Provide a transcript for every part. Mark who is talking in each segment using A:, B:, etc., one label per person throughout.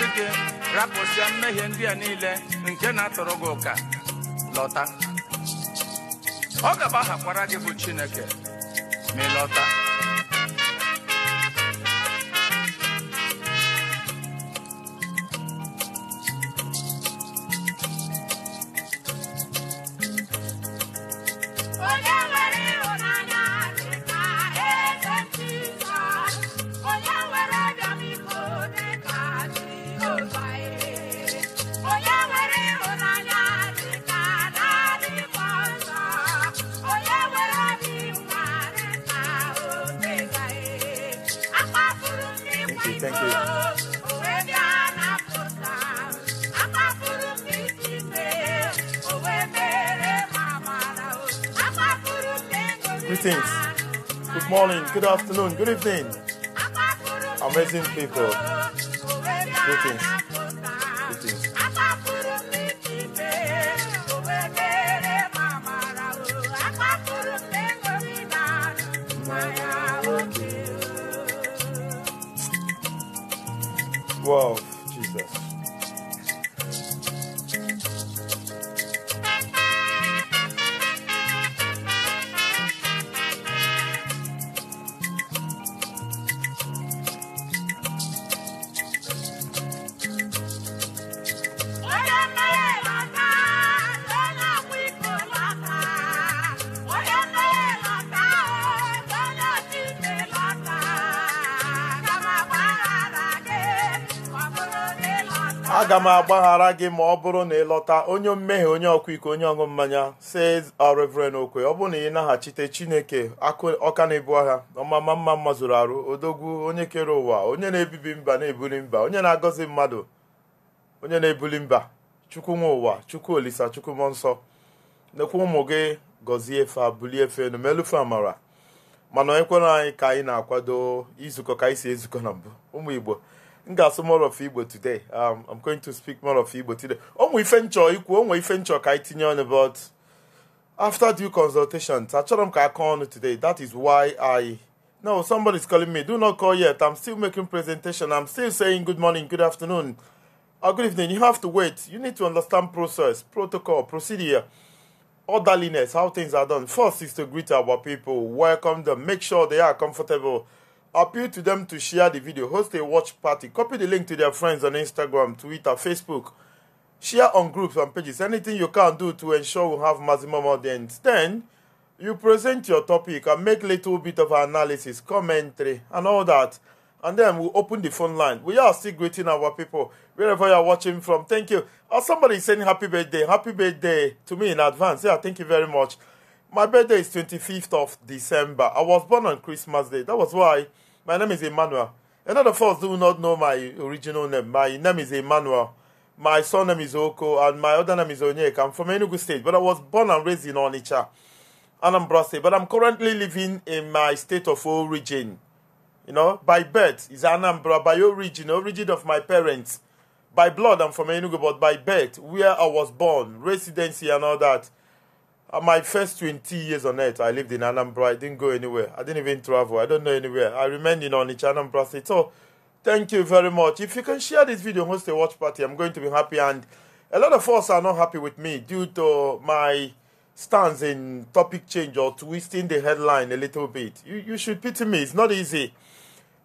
A: asị gị rapụsịa mmehie ndị a niile nke na-atụrụ gị ụka lọta ọ gaba hakwara gị bụ chineke ma ị lọta
B: good afternoon, good evening. Amazing people. Greetings. aga m agbaghara gị ma ọ bụrụ na ị lọta onye mmehie onye ọkwa iko onye ọṅụ mmanya si Reverend Okwe ọ bụrụ na ị naghachite Chineke ọka na-ebu agha ọmama mma mma zụrụ arụ odogwu onye kere ụwa onye na-ebibi mba na-ebuli mba onye na-agọzi mmadụ onye na-ebuli mba chukwu ụwa chukwu olisa chukwu mmụọ nsọ nekwa ụmụ gị gọzie fa bulie efe enu amara mana onye kwere anyị ka anyị na-akwado izukọ ka anyị si ezukọ na mbụ ụmụ Igbo m ga-asụ more of Igbo today um, I'm going to speak more of Igbo today onwe ife nchọ ikwu onwe ife nchọ ka anyị tinye ọnụ but after due consultations achọrọ m ka aka ọnụ today that is why I no somebody is calling me do not call yet I'm still making presentation I'm still saying good morning good afternoon or good evening you have to wait you need to understand process protocol procedure orderliness how things are done first is to greet our people welcome them make sure they are comfortable appeal to them to share the video, host a watch party, copy the link to their friends on Instagram, Twitter, Facebook, share on groups and pages, anything you can do to ensure we have maximum audience. Then, you present your topic and make little bit of analysis, commentary, and all that. And then we open the phone line. We are still greeting our people wherever you're watching from. Thank you. Or somebody is saying happy birthday. Happy birthday to me in advance. Yeah, thank you very much. My birthday is 25th of December. I was born on Christmas Day. That was why my name is Emmanuel. A lot of us do not know my original name. My name is Emmanuel. My son name is Oko, and my other name is Onyeka. I'm from Enugu State, but I was born and raised in Onitsha, Anambra State. But I'm currently living in my state of origin. You know, by birth is Anambra, by origin, origin of my parents. By blood, I'm from Enugu, but by birth, where I was born, residency and all that uh, my first 20 years on earth, I lived in Anambra. I didn't go anywhere. I didn't even travel. I don't know anywhere. I remained in Onitsha, Anambra State. So, thank you very much. If you can share this video, host a watch party, I'm going to be happy. And a lot of us are not happy with me due to my stance in topic change or twisting the headline a little bit. You, you should pity me. It's not easy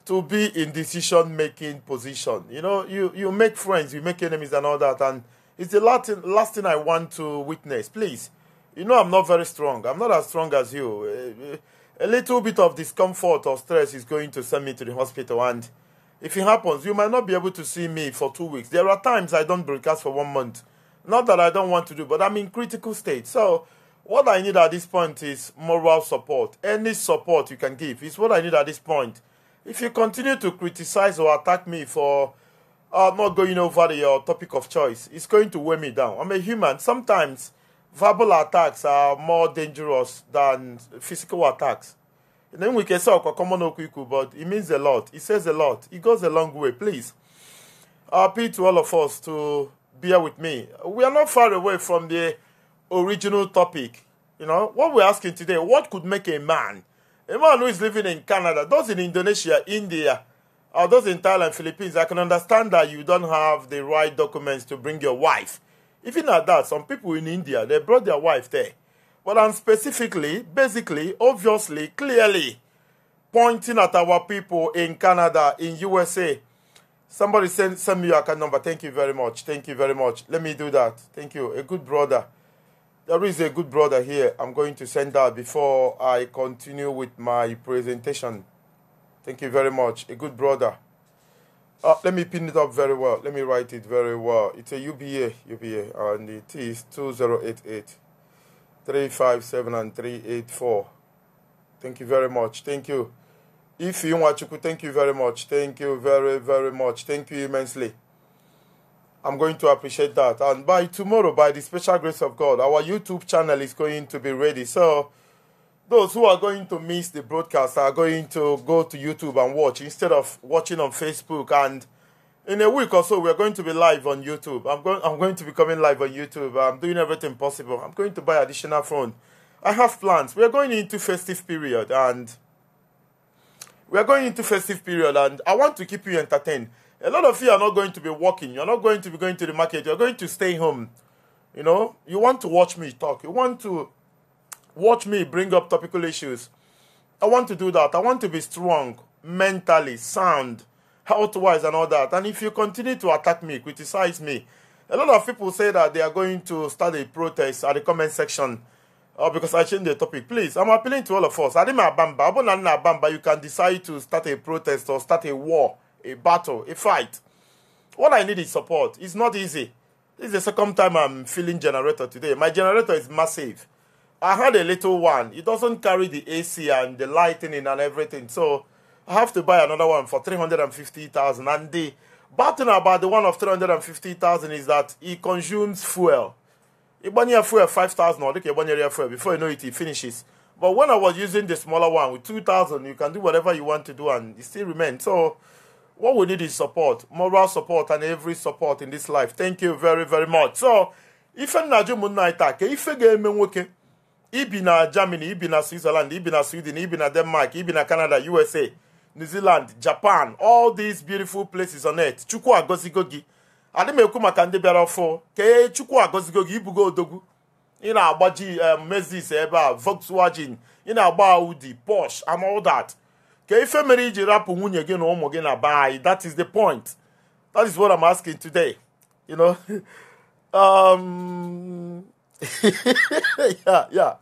B: to be in decision-making position. You know, you, you make friends, you make enemies and all that. And it's the last, last thing I want to witness. Please you know, I'm not very strong. I'm not as strong as you. A little bit of discomfort or stress is going to send me to the hospital. And if it happens, you might not be able to see me for two weeks. There are times I don't broadcast for one month. Not that I don't want to do, but I'm in critical state. So what I need at this point is moral support. Any support you can give is what I need at this point. If you continue to criticize or attack me for uh, not going over your uh, topic of choice, it's going to weigh me down. I'm a human. Sometimes verbal attacks are more dangerous than physical attacks. And then we can say common okwiku, but it means a lot. It says a lot. It goes a long way. Please, I appeal to all of us to bear with me. We are not far away from the original topic. You know, what we're asking today, what could make a man, a man who is living in Canada, those in Indonesia, India, or those in Thailand, Philippines, I can understand that you don't have the right documents to bring your wife even at that, some people in India, they brought their wife there. But I'm specifically, basically, obviously, clearly pointing at our people in Canada, in USA. Somebody send, send me your account number. Thank you very much. Thank you very much. Let me do that. Thank you. A good brother. There is a good brother here. I'm going to send that before I continue with my presentation. Thank you very much. A good brother. Uh, let me pin it up very well. Let me write it very well. It's a UBA, UBA, and it is 2088 357 and 384. Thank you very much. Thank you. If you want to, thank you very much. Thank you very, very much. Thank you immensely. I'm going to appreciate that. And by tomorrow, by the special grace of God, our YouTube channel is going to be ready. So, those who are going to miss the broadcast are going to go to YouTube and watch instead of watching on Facebook. And in a week or so, we're going to be live on YouTube. I'm going, I'm going to be coming live on YouTube. I'm doing everything possible. I'm going to buy additional phone. I have plans. We're going into festive period and we're going into festive period and I want to keep you entertained. A lot of you are not going to be working. You're not going to be going to the market. You're going to stay home. You know, you want to watch me talk. You want to Watch me bring up topical issues. I want to do that. I want to be strong, mentally sound, health wise, and all that. And if you continue to attack me, criticize me, a lot of people say that they are going to start a protest at the comment section uh, because I changed the topic. Please, I'm appealing to all of us. Adima Bamba, Abonana Bamba, you can decide to start a protest or start a war, a battle, a fight. What I need is support. It's not easy. This is the second time I'm feeling generator today. My generator is massive. I had a little one. It doesn't carry the AC and the lighting and everything. So I have to buy another one for 350,000. And the bad thing about the one of 350,000 is that it consumes fuel. year fuel 5,000 or Ibanya fuel. Before you know it, it finishes. But when I was using the smaller one with 2,000, you can do whatever you want to do and it still remains. So what we need is support, moral support and every support in this life. Thank you very, very much. So, if a jụ ụmụnna anyị taa ka ife ga-eme nwoke ibi na germany ibi na switzerland ibi na sweden ibi na denmark ibi na canada usa new zealand japan all these beautiful places on earth chukwu agọzigo gogi, adị m ekwu maka ndị bịara ọfụ kee chukwu agọzigo ibugo odogwu Ina na na-agbaji um, mezis ebe a volkswagen ina na-agba audi porsche and all that Ke ife mere iji rapụ nwunye gị na ụmụ gị na that is the point that is what i'm asking today you know um yeah yeah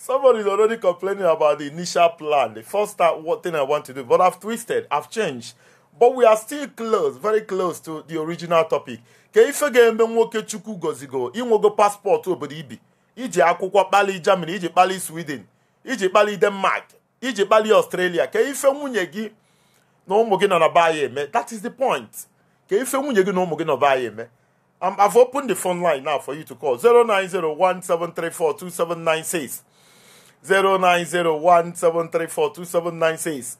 B: Somebody is already complaining about the initial plan, the first start, what thing I want to do. But I've twisted, I've changed. But we are still close, very close to the original topic. ka ife ga-eme nwoke chukwu gozigo inwego paspọtụ obodo ibi iji akwụkwọ kpali Germany iji kpali Sweden iji kpali Denmark iji kpali Australia ka ife nwunye gị na ụmụ gị nọ na be anyị eme that is the point ka ife nwunye gị na ụmụ gị nọ be anyị eme I've opened the phone line now for you to call 0901734279 6 09017342796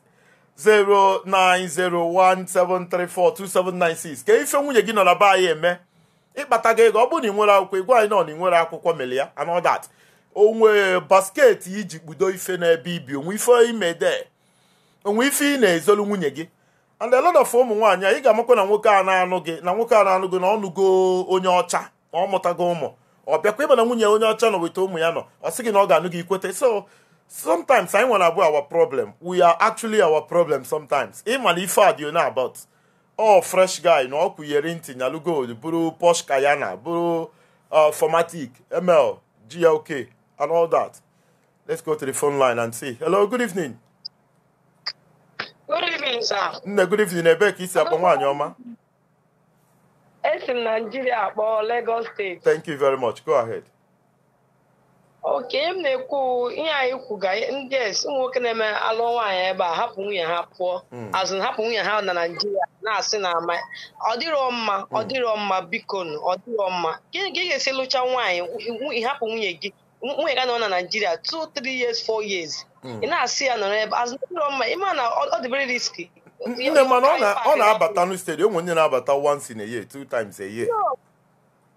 B: ka ife nwunye gị nọ na be anyị eme ịkpata gị ego ọ bụrụ na ị nwere akwụkwọ ịgwa anyị nọ na ị nwere akwụkwọ mere ya anodat onwe basket iji kpudo ife n'ebe ibi onwe ife imede onwe ife ị na-ezolu nwunye gị and a lot ụmụ nwaanyị ị ga-amakwa na nwoke a na-anụ gị na nwoke a na-anụ gị na ọnụgo onye ọcha na ọ mụtago ụmụ ọ bịakwa ịma nwunye onye ọcha nọ weta ụmụ ya nọ ọ sị gị na ọ ga-anụ gị ikwete so sometimes anyị nwere abụ our problem we are actually our problem sometimes ịma na ife a dị onye about ọ fresh guy na ọ kwụnyere ntị nyalụ gold bụrụ posh kayana bụrụ uh, formatic ml glk and all that let's go to the phone line and see hello good evening
C: good evening
D: sir
B: nne good evening ebee ka isi akpọ nwaanyị ọma
D: esi m naijiria kpọọ Lagos steeti
B: thank you very much go ahead.
D: oke m na-ekwu ihe anyị kwuga ndị ụmụ nwoke na-eme alụ nwaanyị ebe a hapụ nwunye ha pụọ hmm. azụ hapụ nwunye ha na naijiria na-asị na ama ọ dịrọ mma hmm. ọ dịrọ mma biko ọ dịrọ mma gịnị ka ị ga-esi lụcha nwaanyị hapụ nwunye gị nwunye ga nọ na naijiria 2 3 years 4 years hmm. ị na-asị ya nọrọ ebe azụ dịrọ mma ịma na ọ dịbere riski nne mana ọ na-abata
B: ọ na n'stedi onwe onye na-abata once in a year two times a year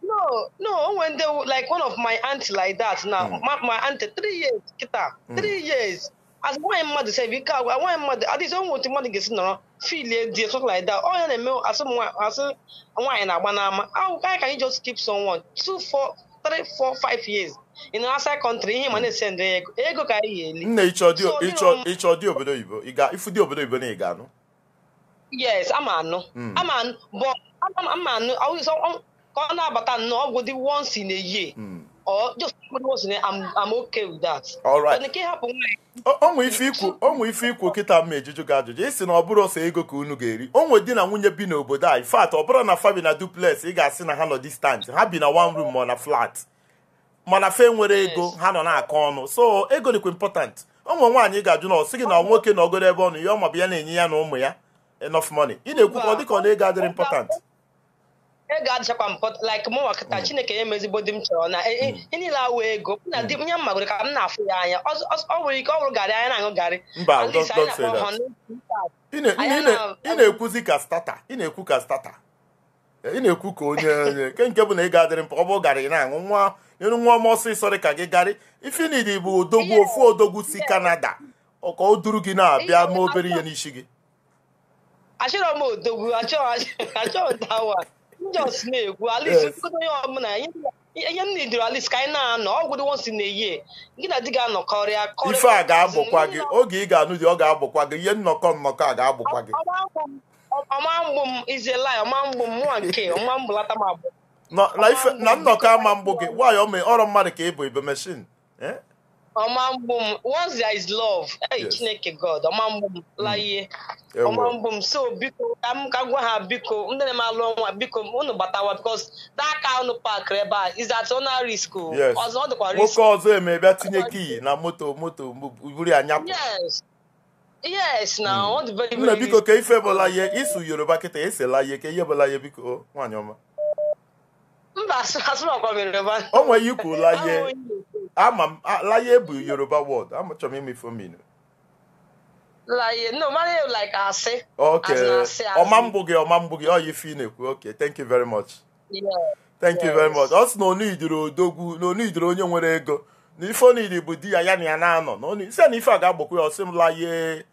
D: no no when they like one of my auntie like that now mm. my, my auntie three years kita hmm. three mm. years as nwaanyị mmadụ sef ike agwa nwaanyị mmadụ adịghị onwe otu mmadụ ga-esi nọrọ filie di something like that ọ ya na-eme asụ asị nwaanyị na-agba n'ama awụka ka anyị just keep someone two four three four five years in outside country ihe ma hmm. na-esendị ego ego ka anyị ga-eli nna
B: ịchọ dị obodo oyibo na ị ga-anụ
D: yes ama anụ hmm. ama anụ but ama anụ um, ka ọ na-abata nnọọ ọgwụ dị once in a year or hmm. just once in a I'm okay with that.
B: onwe ife ikwu onwe ife ikwu kịta mma ejuju gị ajụjụ ịsị na ọ bụrụ ọsọ ego ka unu ga-eri onwe di na nwunye bi n'obodo a in fact ọ bụrụ na fa bi na duplex ị ga-asị na ha nọ distant ha bi na one room ma na flat mana fa nwere ego ha nọ na-akọ ọnụ so ego dịkwa important onwe nwaanyị ga-ajụ na ọ sị gị na nwoke na ogoro ebe ọnụ ya ọ ma ya na-enye ya na ụmụ ya enough money ị na-ekwukwa dịka ọ na ego adịrị important
D: ego adịchakwa mpọt like mụ nwakịta mm. chineke ya emezigbo di m chọrọ na e, e, mm. niile awụ ego na mm. di nye mmagoro ka m na-afụ ya anya ọ nwere ike ọ wụrụ garị anya na-aṅụ garị mba
B: ị na-ekwuzi ka stata ị na-ekwu ka stata ị na-ekwu ka onye nke nke bụ na ego adịrị mkpa ọ bụ garị na-aṅụ nwa ịrụ nwa ọma ọsọ dị ka gị garị ifinidi bụ odogwu ofu odogwu si kanada ọka o duru gị na-abịa ma obere ihe n'isi gị
D: achọrọ m odogwu achọrọ dawa njọs na-egwu alis onye ọbụla ihe m nidoro alis ka anyị na-anọ ọgwụ dị wonsi na eyi gị na di ga-anọkọrịa ife a ga-abụkwa gị
B: oge ị ga-anụ dị ọ ga-abụkwa gị ihe nnọkọ nnọkọ a ga-abụkwa gị
D: ọma mgbu m iziela ọma mgbu m nwa nke ọma mgbu lata m abụọ
B: na nnọkọ ama mbụ gị nwaanyị ọrụ mmadụ ka ị bụ ibe meshin
C: eh?
D: ọma mgbu m once there is love hey, yes. chineke god ọma mgbu m mm. laie ọma mgbu m so biko ka m ka gwa ha biko ndị na eme alụ ọnwa biko unu gbatawa because that car unu park ebe a is at ona risk ọzọ ọ dịkwa risk nwoke ọzọ eme bịa tinye kii
B: na moto moto buru anya.
D: yes na mm. ọ dị very very biko ka
B: ife bụla ihe isu yoruba kịta esela ihe ka ihe bụla ihe biko nwaanyị ọma mba asụrụ akwa mere yoruba o ikwu la ihe ama m laye bụ yoruba word amachọrọ m imefu mmiri
D: Laye, no, Mario like asị.
B: Okay. Ọma mgbụ gị, ọma mgbụ gị, ọ ife ị na-ekwu. Okay, thank you very much.
A: Yeah. Thank you very
B: much. Ọ sị na onu idiri odogwu, na onu onye nwere ego. Na ife onu bụ di ya ya na ya na-anọ. Na onu isi na ife a ga-agbakwa ya, ọ sị m laye,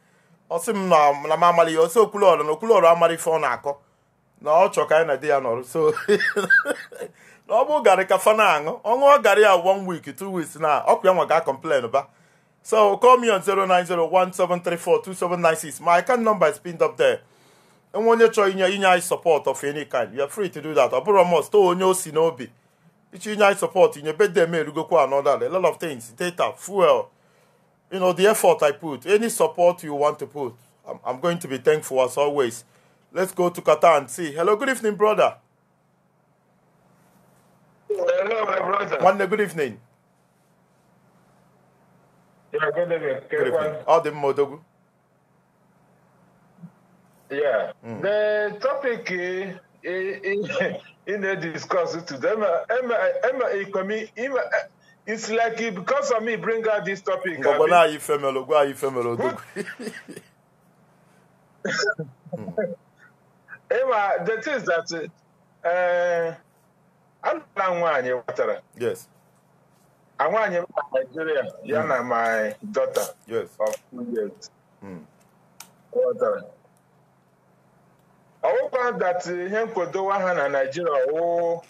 B: ọ m na m amara ihe, ọ sị okwulu na okwulu ọrụ amara ife ọ na-akọ. na ọ chọ ka anyị na di ya nọrọ so na ọ bụ garị ka fa aṅụ ọ ṅụọ garị ya one week two weeks na ọkụ ya nwa ga complain ba so call me on 09017342796 my account number is pinned up there enwe onye chọrọ inye inye anyị support of any kind you are free to do that ọ bụrụ must to onye o si n'obi ichi inye anyị support inye bede m erugokwa another a lot of things data fuel you know the effort i put any support you want to put i'm, I'm going to be thankful as always Let's go to Qatar and see. Hello, good evening, brother.
C: Hello, my
E: brother.
B: One good evening.
F: Yeah, good evening.
E: Good evening.
B: All the Modogu.
F: Yeah. Mm. The topic eh, eh, eh, in the discussion today, Emma, it's like because of me bring out this topic. Gbogbo náà yí
B: fẹ́ mi ológun,
F: àyí ịma the things that anụla eh, nwaanyị watara nwaanyị ma Nigeria ya hmm. na my daughter of two years watara hmm. ọwụkwa that ihe nkwadowa ha na Nigeria wụ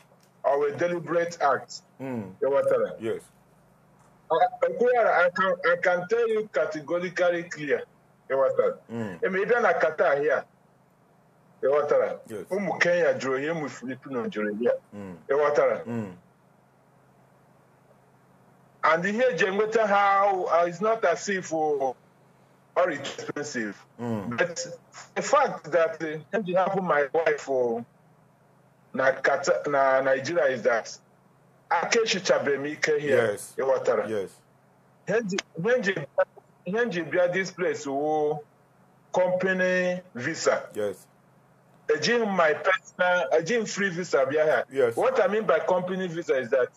F: owe deliberate act hmm. ịghọtara ekwughara I can tell you categorically clear ịghọtara eme ịbịa na Qatar here ịghọtara ụmụ kenya jụrụ ihe ụmụ filipino jụrụ ihe ịghọtara and ihe eji enweta ha uh, is not as if uh, or expensive mm. but the fact that uh, eji hapụ my wife na na nigeria is that akechichabeghị m ike here ịghọtara ihe nji bịa this place wo company visa yes. ejighị my personal ejighị free visa here. Yes. what i mean by company visa is that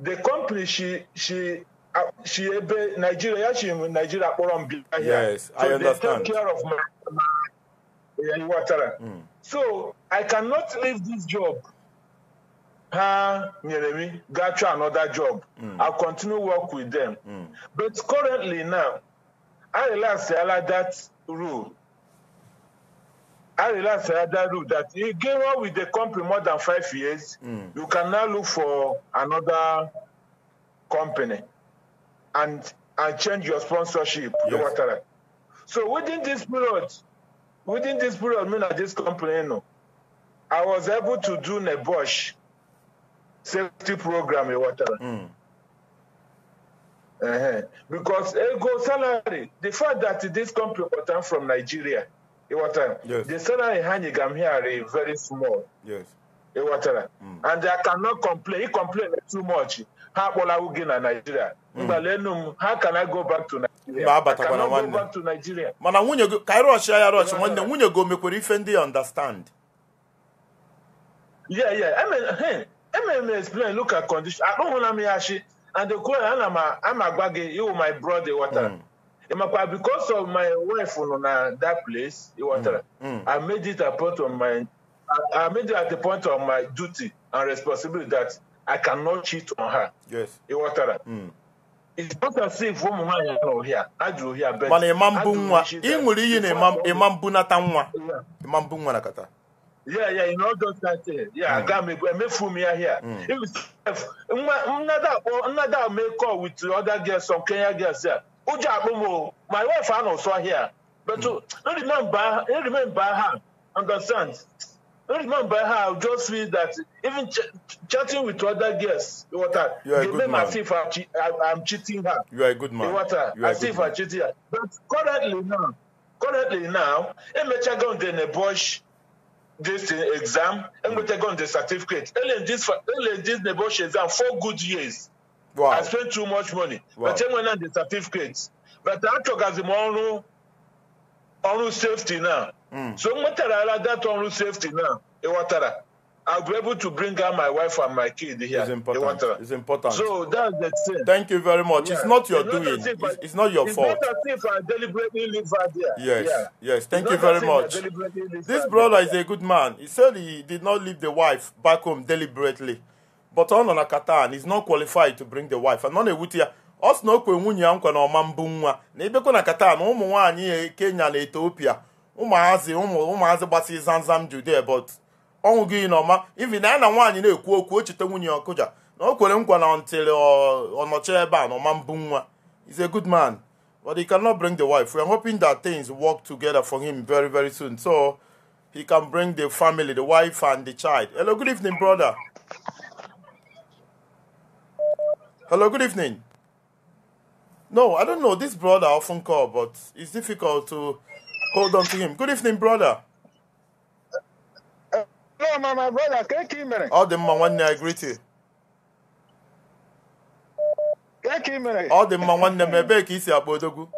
F: the company she she uh, she nigeria she chi nigeria kpọrọ here yes, so I understand. they take care of my water. mm. so i cannot leave this job ha nyere me Got you another job mm. i'll continue work with them mm. but currently now i relax ala that rule I Sayadaru that he gave up with the company more than five years, mm. you can now look for another company and and change your sponsorship. Yes. So within this period, within this period, I mean at this company, you know, I was able to do a Bosch safety program in water. Mm. Uh-huh. Because ego eh, salary, the fact that this company was from Nigeria, ịghọtara the salary ha nye gam here very small ịghọtara hmm. and I cannot complain ị complain too much ha akpọlawo gị na Nigeria mgbalenu hmm. m ha kana go back to Nigeria mana nwunye go ka ịrọchị ya rọchị nwanne nwunye go mekwere ife ndị
B: understand
F: yeah yeah I mean hey explain look at condition akpụhụla m ya shi and the ana m agwa gị you my brother ịghọtara Makwa, because of my wife on that place, it e was, mm. Mm. I made it a point of my, I, I made it at the point of my duty and responsibility that I cannot cheat on her. Yes. It e was, mm. It's not as if woman I know here. I do here better. Mana e imambu nwa. Ingwuri yi na imam
B: imambu na tanwa. Imambu
F: nwa na kata. Yeah, yeah, you know just that thing. Yeah, mm. I got me go me fool me here. Mm. If nwa nwa da make call with other girls some Kenya girls here. ụjọ akpụm my wife anọ sọ here but to uh, remember remember her understand remember her I just feel that even ch chatting with other girls you water you are a good man. I'm, che cheating her
B: you are a good man you water you are a good if man.
F: I'm her but currently now currently now i emecha go dey nebush this exam I'm going to go the certificate I'm ele this ele this nebush exam four good years. Wow. I spent too much money. Wow. But when the certificates. But I achọgazi m ọrụ ọrụ safety now. Mm. So mwetarala that ọrụ safety now. Ịghọtara. I'll be able to bring out my wife and my kid here. It's important. It's important. So that's the thing. Thank you very much. Yeah. It's not your it's not doing. It's,
B: it's, not your it's fault. Not
F: as if I deliberately leave her there. Yes. Yeah. Yes. Thank it's you very much.
C: This brother
B: there. is a good man. He said he did not leave the wife back home deliberately. but ọ nọ na Qatar is not qualified to bring the wife and nọ na-ewute ya ọ sị na okwe nwunye ya nkwa na ọma mbụ nwa na ibekwa na Qatar na ụmụ nwaanyị e, Kenya na Ethiopia ụmụazị ụmụazị gbasi zamzam Judea but ọnwụ gị na ivi na ya na nwaanyị na-ekwu okwu o cheta nwunye ọkụja na o kwere nkwa na ntịrị ọnọchi ebe a na ọma mbụ nwa is a good man but he cannot bring the wife we are hoping that things work together for him very very soon so he can bring the family the wife and the child hello good evening brother Hello, good evening. No, I don't know. This brother I often call, but it's difficult to hold on to him. Good evening, brother. Hello, my, my brother, Thank you minute? All the man I greet you. Thank you minute? All the man one name, I beg you,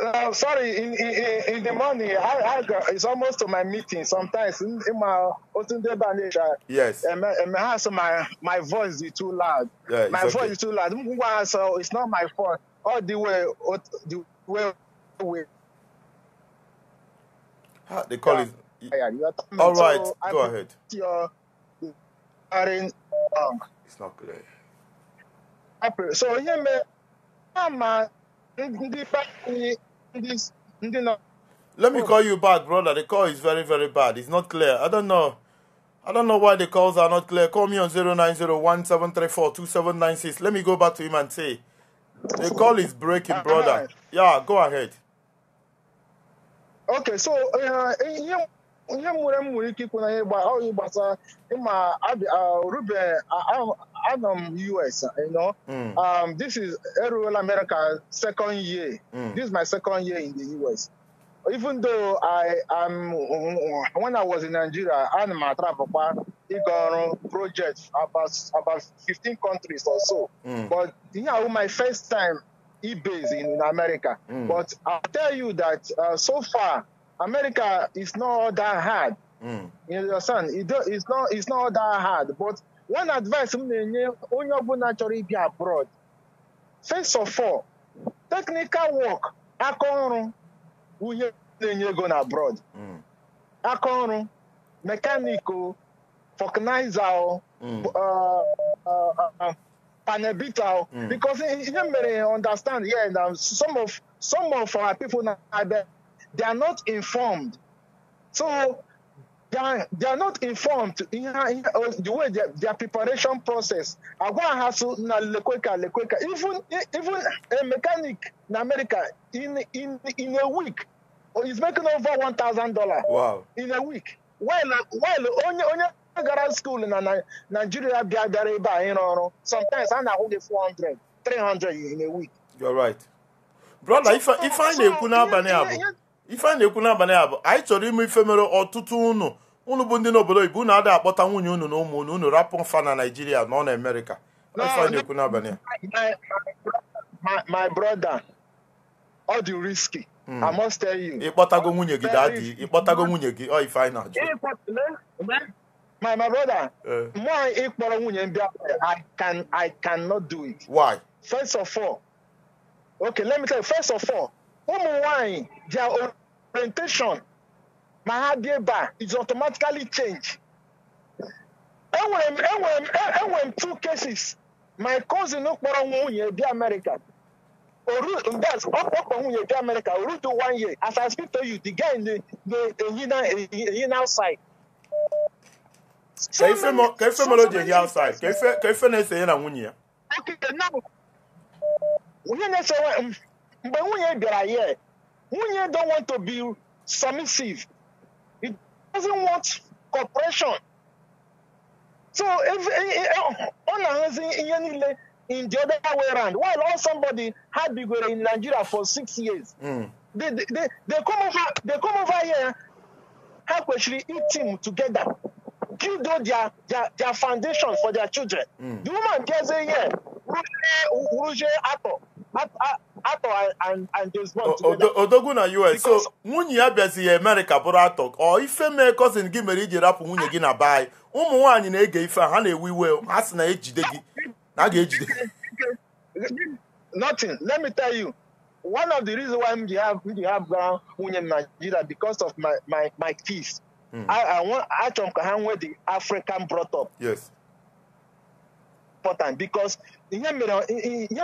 G: uh, sorry, in, in, in the morning, I, I got, it's almost to my meeting. Sometimes in, in my Yes. And and my, my, my voice is too loud. Yeah, my okay. voice is too loud. So it's not my fault. All the way, the way. way. They the call yeah. All right, so go I ahead. Your, um, it's not clear. So, yeah, man, I'm a. ndị pati let me call you back, brother. The
B: call is very, very bad. It's not clear. I don't know. I don't know why the calls are not clear. Call me on 09017342796. Let me go back to him and say, the call is breaking, brother. Yeah, go ahead.
G: Okay, so uh, ịma uh, uh, uh, Adam US, you know. Mm. Um, this is Aerial America second year. Mm. This is my second year in the US. Even though I am, when I was in Nigeria, I'm a travel got project about about 15 countries or so. Mm. But you know, my first time eBay's in, in America. Mm. But I'll tell you that uh, so far, America is not that hard. Mm. You understand? It, it's not it's not that hard, but one advice m na-enye onye ọbụla chọrọ ịbịa abroad first of all technical work aka ọrụ uhie na-enye ego na abroad mm. aka ọrụ mekaniko fọknaiza panebita because ihe mere understand yeah, na some of some of our people na abịa they are not informed so They are, they are not informed in, in the way their, their preparation process. I Agwa hasu na lekweka lekweka. Even even a mechanic in America in in in a week is oh, making over one thousand dollar. Wow! In a week. While while onye onye school in Nigeria bịa bịara ebe a ịrụ ọrụ. Sometimes I na-ahụ four hundred, three hundred 300 in a week.
B: You're right. Brother, if I, if I na-ekwu n'abalị a bụ ife a na-ekwu n'abalị a bụ anyị chọrọ ime ife mere ọtụtụ unu unu bụ ndị n'obodo oyibo unu adịghị akpọta nwunye unu na ụmụ unu unu rapụ fa na naijiria nọ na amerịka ife a na-ekwu n'abalị
C: a
B: my brother ọ dị risky hmm. I must tell you ịkpọtago nwunye gị dadi ịkpọtago nwunye gị ọ ife anyị na-ajụ
G: my my brother eh. mụ ịkpọrọ nwunye ndị I can I cannot do it why first of all okay let me tell you first of all ụmụ nwanyị they are orientation na ha dị ebe a is automatically change. enwere m enwere m enwere m two cases my cousin kpọrọ nwunye dị America orudaz ọ kpọkpọ nwunye dị America orudu one year as I speak to you the guy na-ehi na ehi na outside. ka ife mere o ji ehi outside
B: ka ife na-ese ya na nwunye ya.
G: onye na-ese mgbe nwunye bịara ya Munye don't want to be submissive. He doesn't want cooperation. So if eh, eh, eh, oh, on in in the other way around, while all somebody had been in Nigeria for six years, mm. they, they, they, they come over they come over here, help actually eat team together, them their, their their foundation for their children. Mm. The woman gets a year, Ato, atọ and and there's one together.
B: odogwu na us so nwunye ya bịazi ya amerịka bụrụ atọ ọ ife mee cousin gị mere iji rapụ nwunye gị na be anyị ụmụ nwanyị na-ege ife ha na-ewe iwe
G: ha sị na ejide gị na a ga-ejide nothing let me tell you one of the reasons why have ji have bụra nwunye m Nigeria because of my my my kids achọrọ m ka ha nwee the African brought up yes important because you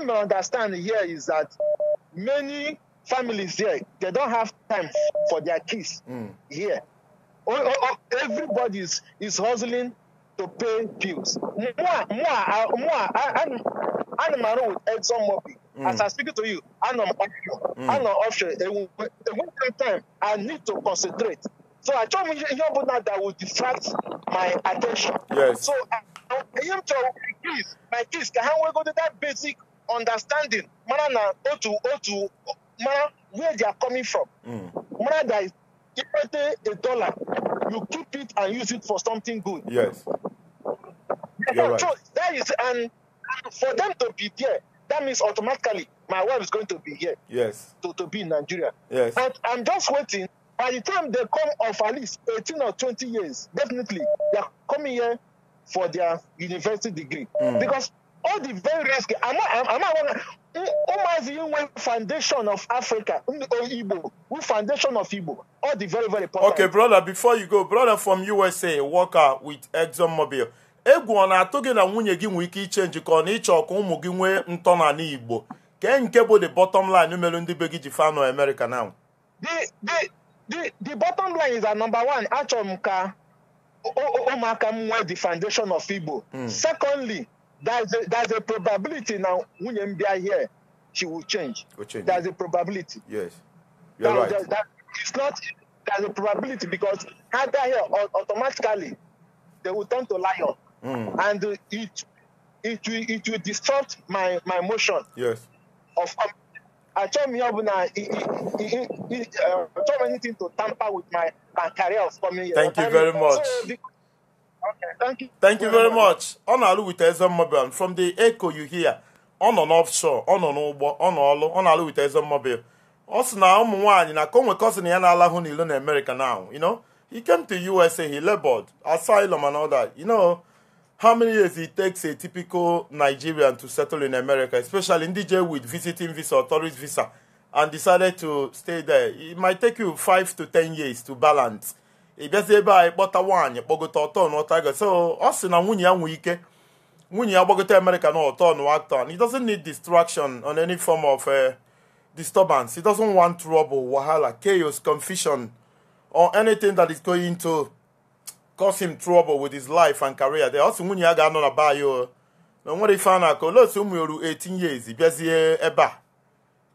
G: may understand here is that many families here, they don't have time for their kids mm. here. everybody is, is hustling to pay bills. More, more, more, with head some mm. As I speak to you, I'm an option. Mm. I'm on option. A one time, I need to concentrate. So I told you, that will distract my attention. Yes. So I, for him to increase, my kids, ka ha go to that basic understanding, mara na otu to, mana, where they are coming from. Mm. that, that is, pay a dollar, you keep it and use it for something good. Yes. You're right. So that is, and for them to be there, that means automatically my wife is going to be here. Yes. To, to be in Nigeria. Yes. But I'm just waiting. By the time they come of at least 18 or 20 years, definitely, they are coming here for their university degree. Mm. Because all the very risky, I'm not, I'm not, Umazi Inwe Foundation of Africa, Igbo, Foundation of Igbo, all the very, very important. Okay,
B: brother, before you go, brother from USA, worker with ExxonMobil. egwu ọ na-atụ gị na nwunye gị nwee ike iche njikọ na ịchọ ka ụmụ gị nwee ntọnala Igbo kee nke bụ the bottom line mere ndị be gị ji fanụ America now.
G: the, the, the bottom line is that number one, achọrọ m ka ụmụaka m nwee the foundation of Igbo hmm. secondly there's a, there's a probability na nwunye m bịa here she will change. Will change. There's a probability. Yes. You are right. That, that, it's not, there's a probability because had that here automatically, they will turn to lion. Mm. And it, it, will, it will distort my, my motion yes. of achọghị m ihe ọbụla achọghị m anything to tamper with my, my career of coming here. Thank you very much. Okay, thank you. Thank you very much. Ọ na-alụ
B: with Ezemmobile from the echo you hear. Ọ nọ n'offshore, ọ nọ n'ụgbọ, ọ nọ ọlụ, ọ na-alụ with Ezemmobile. Ọ sị na ụmụ nwaanyị na ka o nwere cousin ya na-alahụ n'ilo na America now, you know? He came to USA, he labored, asylum and all that, you know? How many years it takes a typical Nigerian to settle in America, especially in DJ with visiting visa or tourist visa, and decided to stay there? It might take you five to ten years to balance. Ị bịazie ebe a ịkpọta nwaanyị kpọgota ọtọ na ọtọ so us sị na nwunye ya nwee ike nwunye ya gbagota America na ọtọ na he doesn't need distraction on any form of uh, disturbance he doesn't want trouble wahala chaos confusion or anything that is going to cause him trouble with his life and career They also nwunye ya ga-anọ na baa ya na onwere ife a na-akọ olee otu ụmụ yoru 18 years bịazie ebe a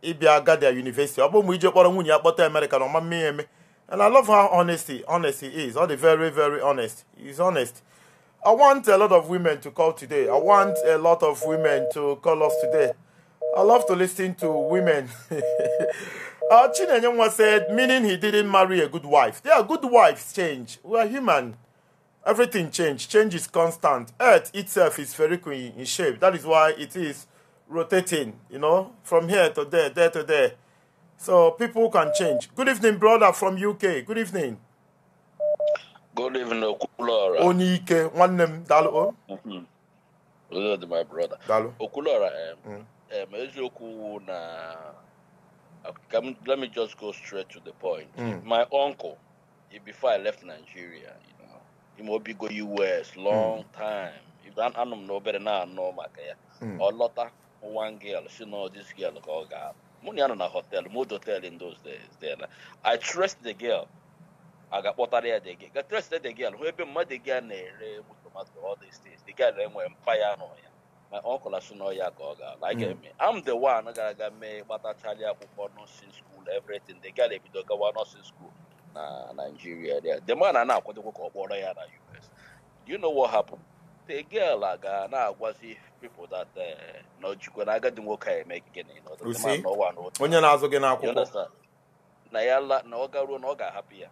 B: ịbịa Gadia University ọ bụ ụmụ ije kpọrọ nwunye ya kpọta America na ọma mme eme and I love how honesty honesty is all the very very honest is honest I want a lot of women to call today I want a lot of women to call us today I love to listen to women uh, Chinenye said meaning he didn't marry a good wife there are good wives change we are human Everything change. Change is constant. Earth itself is spherical in shape. That is why it is rotating, you know, from here to there, there to there. So people can change. Good evening, brother from UK. Good evening.
H: Good evening, Okulora.
B: Onike, name,
H: mm-hmm. my brother. Dalo. Okulora, um, mm. um, let me just go straight to the point. Mm. My uncle, before I left Nigeria, ima obi go us long hmm. time if anụ anum na better na-anọ maka ya ọ lọta one girl she know this girl ka ọ ga mụ na na hotel mood hotel in those days there i trust the girl a ga-akpọtara ya the girl trust the girl hụ ebe mmadụ ga na to tomato all these things. the girl enwe mpaya nọ ya my uncle asị na ya ka ọ ga like hmm. eh, me i'm the one I got me. gara aga mee gbatachala akwụkwọ since school everything the girl ebido gawa since school na Nigeria there. The man na-akwadokwa ka ọ kpọrọ ya na US. Do you know what happened? The girl aga na-agwazi people that eh, na ojikwa na agadi nwoke a eme gịnị onye na-azụ gị n'akwụkwọ na ya la na ọ garuo na ọ ga-ahapụ ya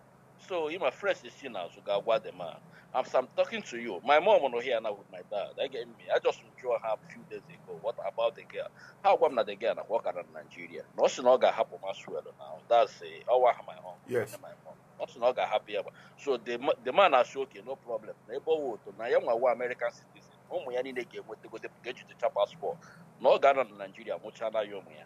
H: so ịma fresh si n'azụ ga-agwa the man I'm. I'm talking to you, my mom was not here now with my dad. I get me. I just enjoy her a few days ago. What about the girl? How come not the girl and work around Nigeria? Nothing not gonna happen as well now. That's a oh, I my own.
A: Yes. My mom.
H: Nothing not gonna happen. So the the man has okay, no problem. Neighborhood to now young American citizen. Ụmụ ya niile ga-enweta gote ga-ejitecha paspọtụ not o to ga-anọ na Naijiria I ya ụmụ ya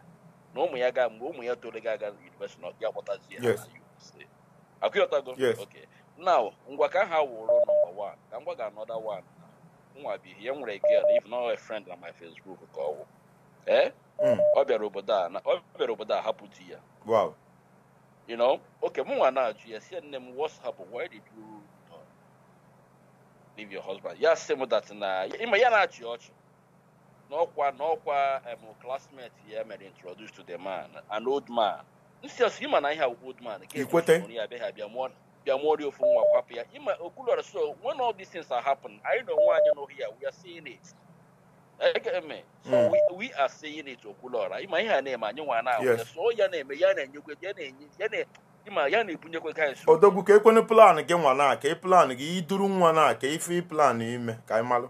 H: na ụmụ ya ga mgbe ụmụ ya toro No aga na yunivesiti na o I, ga-akpọtazi ya na USA. Yes. Okay. now ngwa ka ha wụrụ nọmba 1 ka ngwa ga anọda 1 nwa bi ihe nwere girl if not a friend na my Facebook ka ọ wụ ee eh? hmm. ọ bịara obodo a ọ bịara obodo a hapụ di ya you know okay mụ nwa na-ajụ ya si nne m what's happened why did you leave your husband ya sị m that na ịma ya na-achị ọchị n'ọkwa n'ọkwa em classmate ya mere introduce to the man an old man nsi ọsọ ịma na ihe old man ke ya abịaghị abịa mụọ na their ori of nwa Ima ya so when all these things are happening, I don't want you know here, we are seeing it. So mm. we, we are seeing it Okulora. Ima her na and you want to ya na name, ya na ya na Ima ya na-ebunyekwe ka nso
B: odogu ka ekwene plan gị nwa na ka ị e plan gị iduru nwa na ka ife plan ime ka ị malụ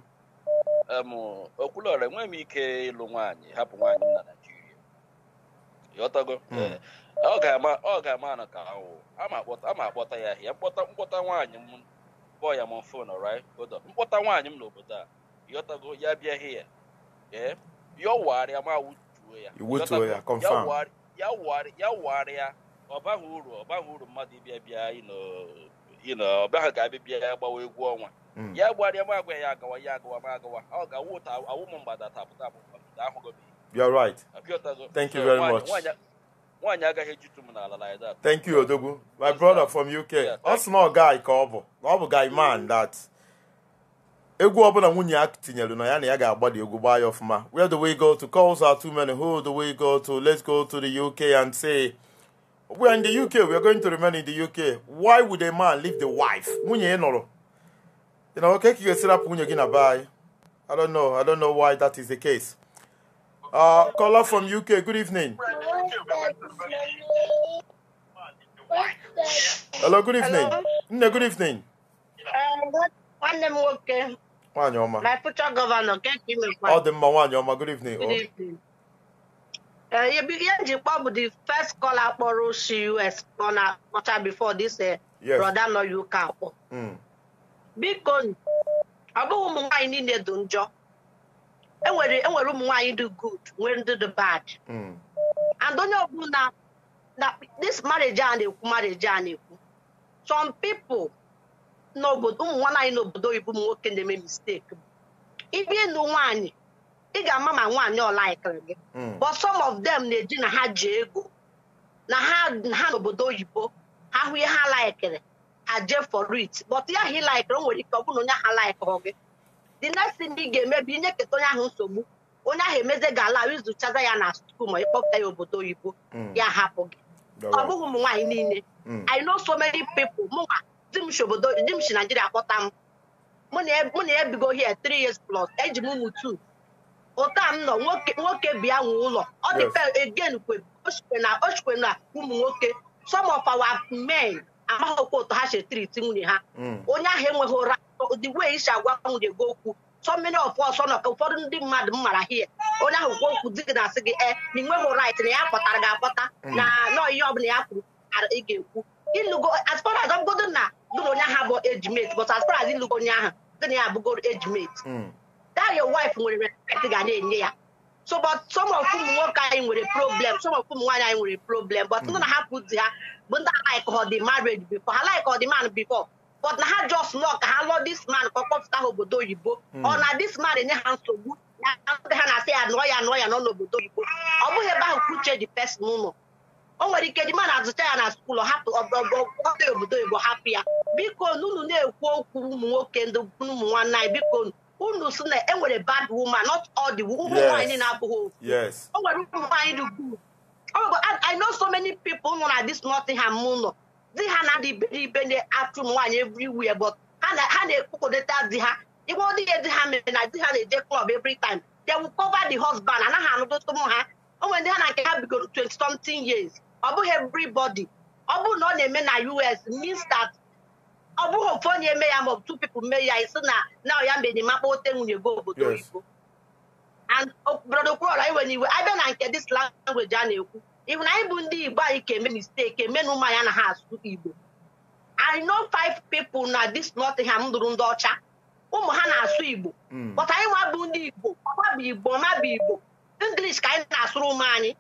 H: ike ịlụ nwaanyị hapụ nwanyị na Naịjirịa ọ ga-ama na ka awụ ama akpọta ya ahịa mkpọta nwaanyị m kpọọ ya m fon right hold up mkpọta nwaanyị m n'obodo a yọtago ya bịa hịa ee eh? ya wụgharịa ma wutuo ya ya wụgharịa ọ baghị uru ọ baghị uru mmadụ ịbịa bịa ịnọ ọ baghị ga-abịa bịa ya gbawa egwu ọnwa hmm. ya gbarịa m agwa ya agawa ya agawa m agawa ọ ga-awụ awụ m mgbada tapụta apụta ahụgo m You're right. Thank you very much.
B: thank you Odogu. my brother from uk ọ sị guy ka ọ bụ ọ bụ guy man that egwu ọbụla nwunye ya tinyere na ya na ya ga egwu gbaa where do we go to calls are too many who do we go to let's go to the uk and say we are in the uk we are going to remain in the uk why would a man leave the wife nwunye ya nọrọ you know okay ka ị nwunye gị na bye. i don't know i don't know why that is the case uh, caller from uk good evening Hello, good evening. Nne, good evening.
I: Eh, nwanne m nwoke. Nwaanyị ọma. My future governor, nke ka ị mekwa. Ọ dị
B: mma nwaanyị ọma, good evening. Good
I: evening. Eh, ihe nji kpọ bụ the first call akpọrọ osi US ọ na-akpọcha before this eh, brother nọ ya ụka akpọ. Hmm. Biko, ọ bụghị ụmụ nwaanyị niile dị njọ. e nwere e ụmụ nwaanyị dị good, nwee ndị dị bad. Hmm. and onye ọbụla na this marriage a na-ekwu marriage a na-ekwu some people n'obodo ụmụ nwaanyị n'obodo oyibo ụmụ nwoke na-eme mistake ibi ịnụ nwaanyị ị ga-ama ma nwaanyị ọlaikiri gị but some of them na-eji na ha ji ego na ha n'obodo oyibo ha hụ ihe ha laikiri ha jee for it but ya ha ịlaikiri o nwere ike ọ bụrụ na onye ha laikiri gị the next thing ị ga-eme bụ inye keta onye ahụ nsogbu onye ahụ emeze gala izuchaza ya na skuul ma ịkpọpụta ya obodo oyibo hmm. ya hapụ gị ọ bụghị ụmụ nwaanyị niile hmm. I know so many people mụnwa di m si obodo di m si Naijiria kpọta m mụ na ya e, bigo here three years plus eji m ụmụ two ụta m nọ nwoke bịa nwe ụlọ ọ dịpe again ochikwe na ụmụ nwoke some of our men amaghịkwa ụtọ ha si triti nwunye ha hmm. onye ahụ enweghị ụra the way isi agwa nwunye gị okwu so many of us nọ ka ụfọdụ ndị mmadụ m mara hie onye ahụ kwuo okwu dị gị na-asị gị e na ị nweghị right na ya akpọtara gị akpọta na nọọ ihe ọbụla ya kwuru ị ga-ekwu ilugo as far as ọbụgodo na gị na onye ahụ bụ ejimet but as far as onye ahụ dị na ya abụgoro ejimet. that your wife nwere respect ga na-enye ya so but some of ụmụ nwoke anyị nwere problem some of ụmụ nwaanyị anyị nwere problem but ndị na-ahapụ di ha bụ ndị alaik ọ dị marriage before ha laik ọ dị man before but na ha just lọ ka ha lọ dis man ka ọ ha obodo oyibo hmm. ọ na dis man enye ha nsogbu na ha na-asị ya nụọ ya nụọ ya nọ n'obodo oyibo ọ bụghị ebe ahụ ka di dị pesin ụlọ o nwere ike di man azụcha ya na skuul hapụ ọdị obodo oyibo hapụ ya biko unu na-ekwu okwu ụmụ nwoke ndị ụmụ nwanne anyị biko unu sị na e nwere bad woman not all the ụmụ nwaanyị na-abụghị o nwere ụmụ nwaanyị dị good I know so many people nọ na this Nottingham ụlọ di ha na ndị ibe na-atụ m nwaanyị ebri wie but ha na-ekwukọdata di ha igwe dị di ha mere na di ha na-eje klọb every taim they will cover the husband anaghị anụdụtụ m ha onwe ndị ha na nke ha bigoro 20 something years ọ bụghị everybody ọ bụrụ na ọ na-eme na US means ọ bụghị ofu onye eme ya maọbụ two people mee ya isi na na ọya mbe enyemaka ote nwunye go obodo oyibo and oh, brodo Okwuluora iwe na iwe abịa na nke dis language a na-ekwu na anyị bụ ndị igbo anyị ka eme mistake eme na ụmụ anyị anaghị asụ igbo i know five people na this nottingham lụrụ ndị ọcha ụmụ ha na-asụ igbo hmm. but anyị nwa bụ ndị igbo ọba bụ igbo ọma bụ igbo english ka anyị na-asụrụ ụmụ anyị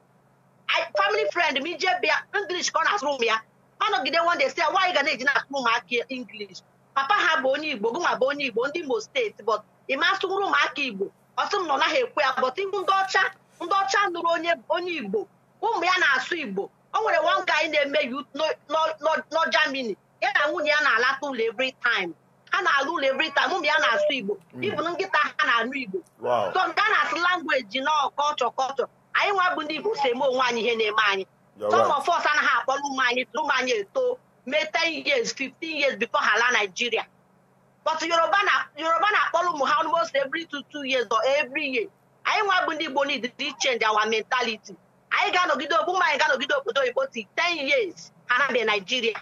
I: family friend m ije bịa english ka ọ na-asụrụ m ya ọ nọgide wonde si nwaanyị ga na-eji na-asụrụ ụmụaka english papa ha bụ onye igbo gụnwa bụ onye igbo ndị imo steeti but ịma asụrụ ụmụaka igbo ọtụ m nọ naghị ekwe ya but ihu ndị ọcha ndị ọcha nụrụ onye igbo ụmụ ya na-asụ igbo o nwere one guy na-eme no Germany ya na nwunye ya na-alata ụlọ every time ha na-alụ ụlọ every time ụmụ ya na-asụ igbo ibu hmm. nkịta ha na-anụ igbo so nke a na-asụ langweji na kọlchọ kọlchọ anyị nwa bụ ndị igbo so eme onwe anyị ihe na-eme anyị some of us anaghị akpọrọ ụmụ anyị ụmụ anyị eto mee ten years fifteen years before ha laa Nigeria but Yoruba na-akpọrọ ụmụ ha almost every two two years or every year anyị nwa bụ ndị igbo need to change our mentality anyị ga-anọgide obu anyị ga-anọgide obodo oyibo ti 10 years ha na dị naijiria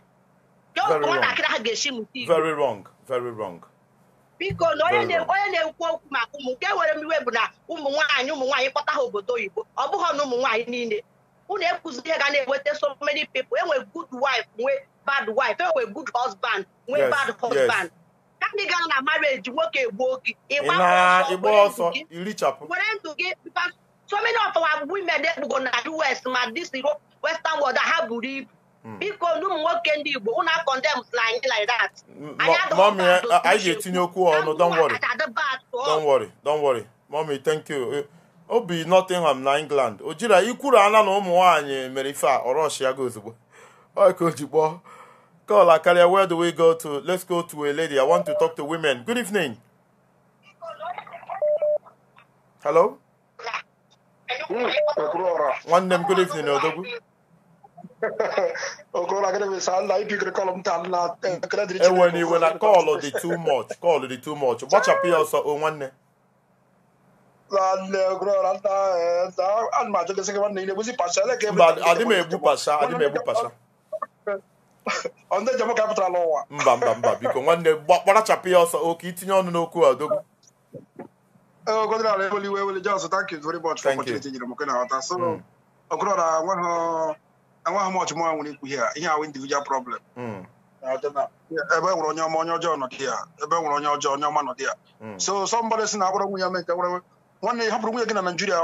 I: nwatakịrị ha ga esi mụta very biko na onye na-ekwu okwu maka ụmụ nke nwere m iwe bụ na ụmụ nwaanyị ụmụ nwaanyị kpọta ha obodo oyibo ọ bụghị na ụmụ nwaanyị niile unu ekwuzi ihe ga na-enweta so many people enwe good wife nwee bad wife enwe good husband nwee bad husband ka gara na marriage nwoke gbuo gị ịgba ọsọ were ndụ gị So many of our women they go na US ma this Western world ha buru ibu. Biko ndị nwoke ndị Igbo ụna condemns na anyị like that.
B: Mommy, anyị ga-etinye okwu ọnụ, don't worry. Don't worry, don't worry. Mommy, thank you. Eh, o bi Nottingham na England ojira jira ikwuru ana na ụmụ nwaanyị mere ife a ọrọshiago ozugbo ka o ji kpọọ kọla karịa where do we go to let's go to a lady I want to talk to women good evening
J: hello nwanne m good evening odogwu e, enwere iwe na kọlụ dị too much
B: kọlụ dị too much gbachapụ ya ọsọ o nwanne
J: e, e mba adị m egbu pasha adị m egbu pasha
B: mba mba mba biko nwanne gbarachapụ ya ọsọ oke itinye ọnụ n'okwu a odogwu
J: Ogodinala Eweliwe Eweli Johnson, thank you very much for opportunity nyere m mm. na nghọta. So Ogodinala anwaghị m ọchụmụ nwere ikwu ihe ihe ndị individual problem. Mm. Ebe nwere onye ọma onye ọjọọ nọdị ya ebe nwere onye ọjọọ onye ọma nọdị ya. Mm. So somebody si na agbara nwunye na nwunye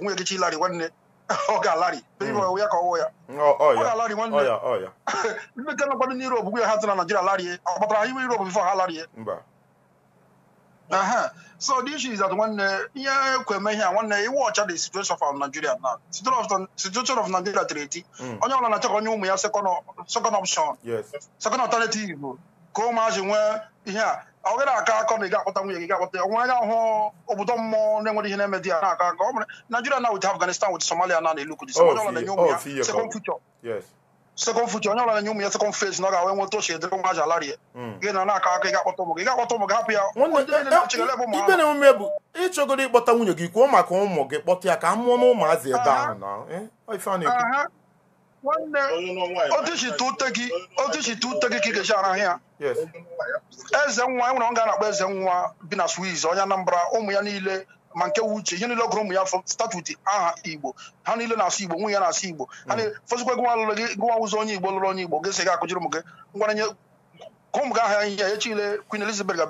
J: nwunye gị lari ọ ha na Naijiria ọ Europe Uh-huh. So the issue is that when uh, yeah, when uh, you watch the situation of Nigeria now, situation of situation of Nigeria treaty, mm. onye ọbụla na-achọ ka ya second option, Yes. second alternative ka imagine where yeah. ihe a ọ gaghị aka akọ na ị ga-akpọta nwunye gị ga-akpọta ya nwa anya hụ obodo mmụọ na-enwere ihe na-eme dị ya na-aka aka ọ bụrụ Nigeria now with Afghanistan with Somalia na na-elu kudi Somalia na-enye ụmụ oh, ya second future. sekọmfụ ji onye ọranya ụmụ ya na ọ ga-awe nweta ochie dịrị nwa aja alarie gị na na-aka aka ịga ga-akpọta ụmụ gị ga-akpọta ụmụ gị hapụ ya ibe na emume bụ
B: ịchọgoro ịkpọta nwunye gị kwuo maka ụmụ gị kpọta ya ka a mụọ n'ụmụazị ebe ahụ
A: na. otuchite
J: ute gị ka ị ga-eji ara ya eze nwa enwere ọ ga na-akpọ eze nwa bi na swiz onye Anambra ụmụ ya niile ma nke wuche igbo ha na-asụ igbo ya na-asụ igbo ha ụzọ hmm. onye igbo onye igbo ya Queen Elizabeth ga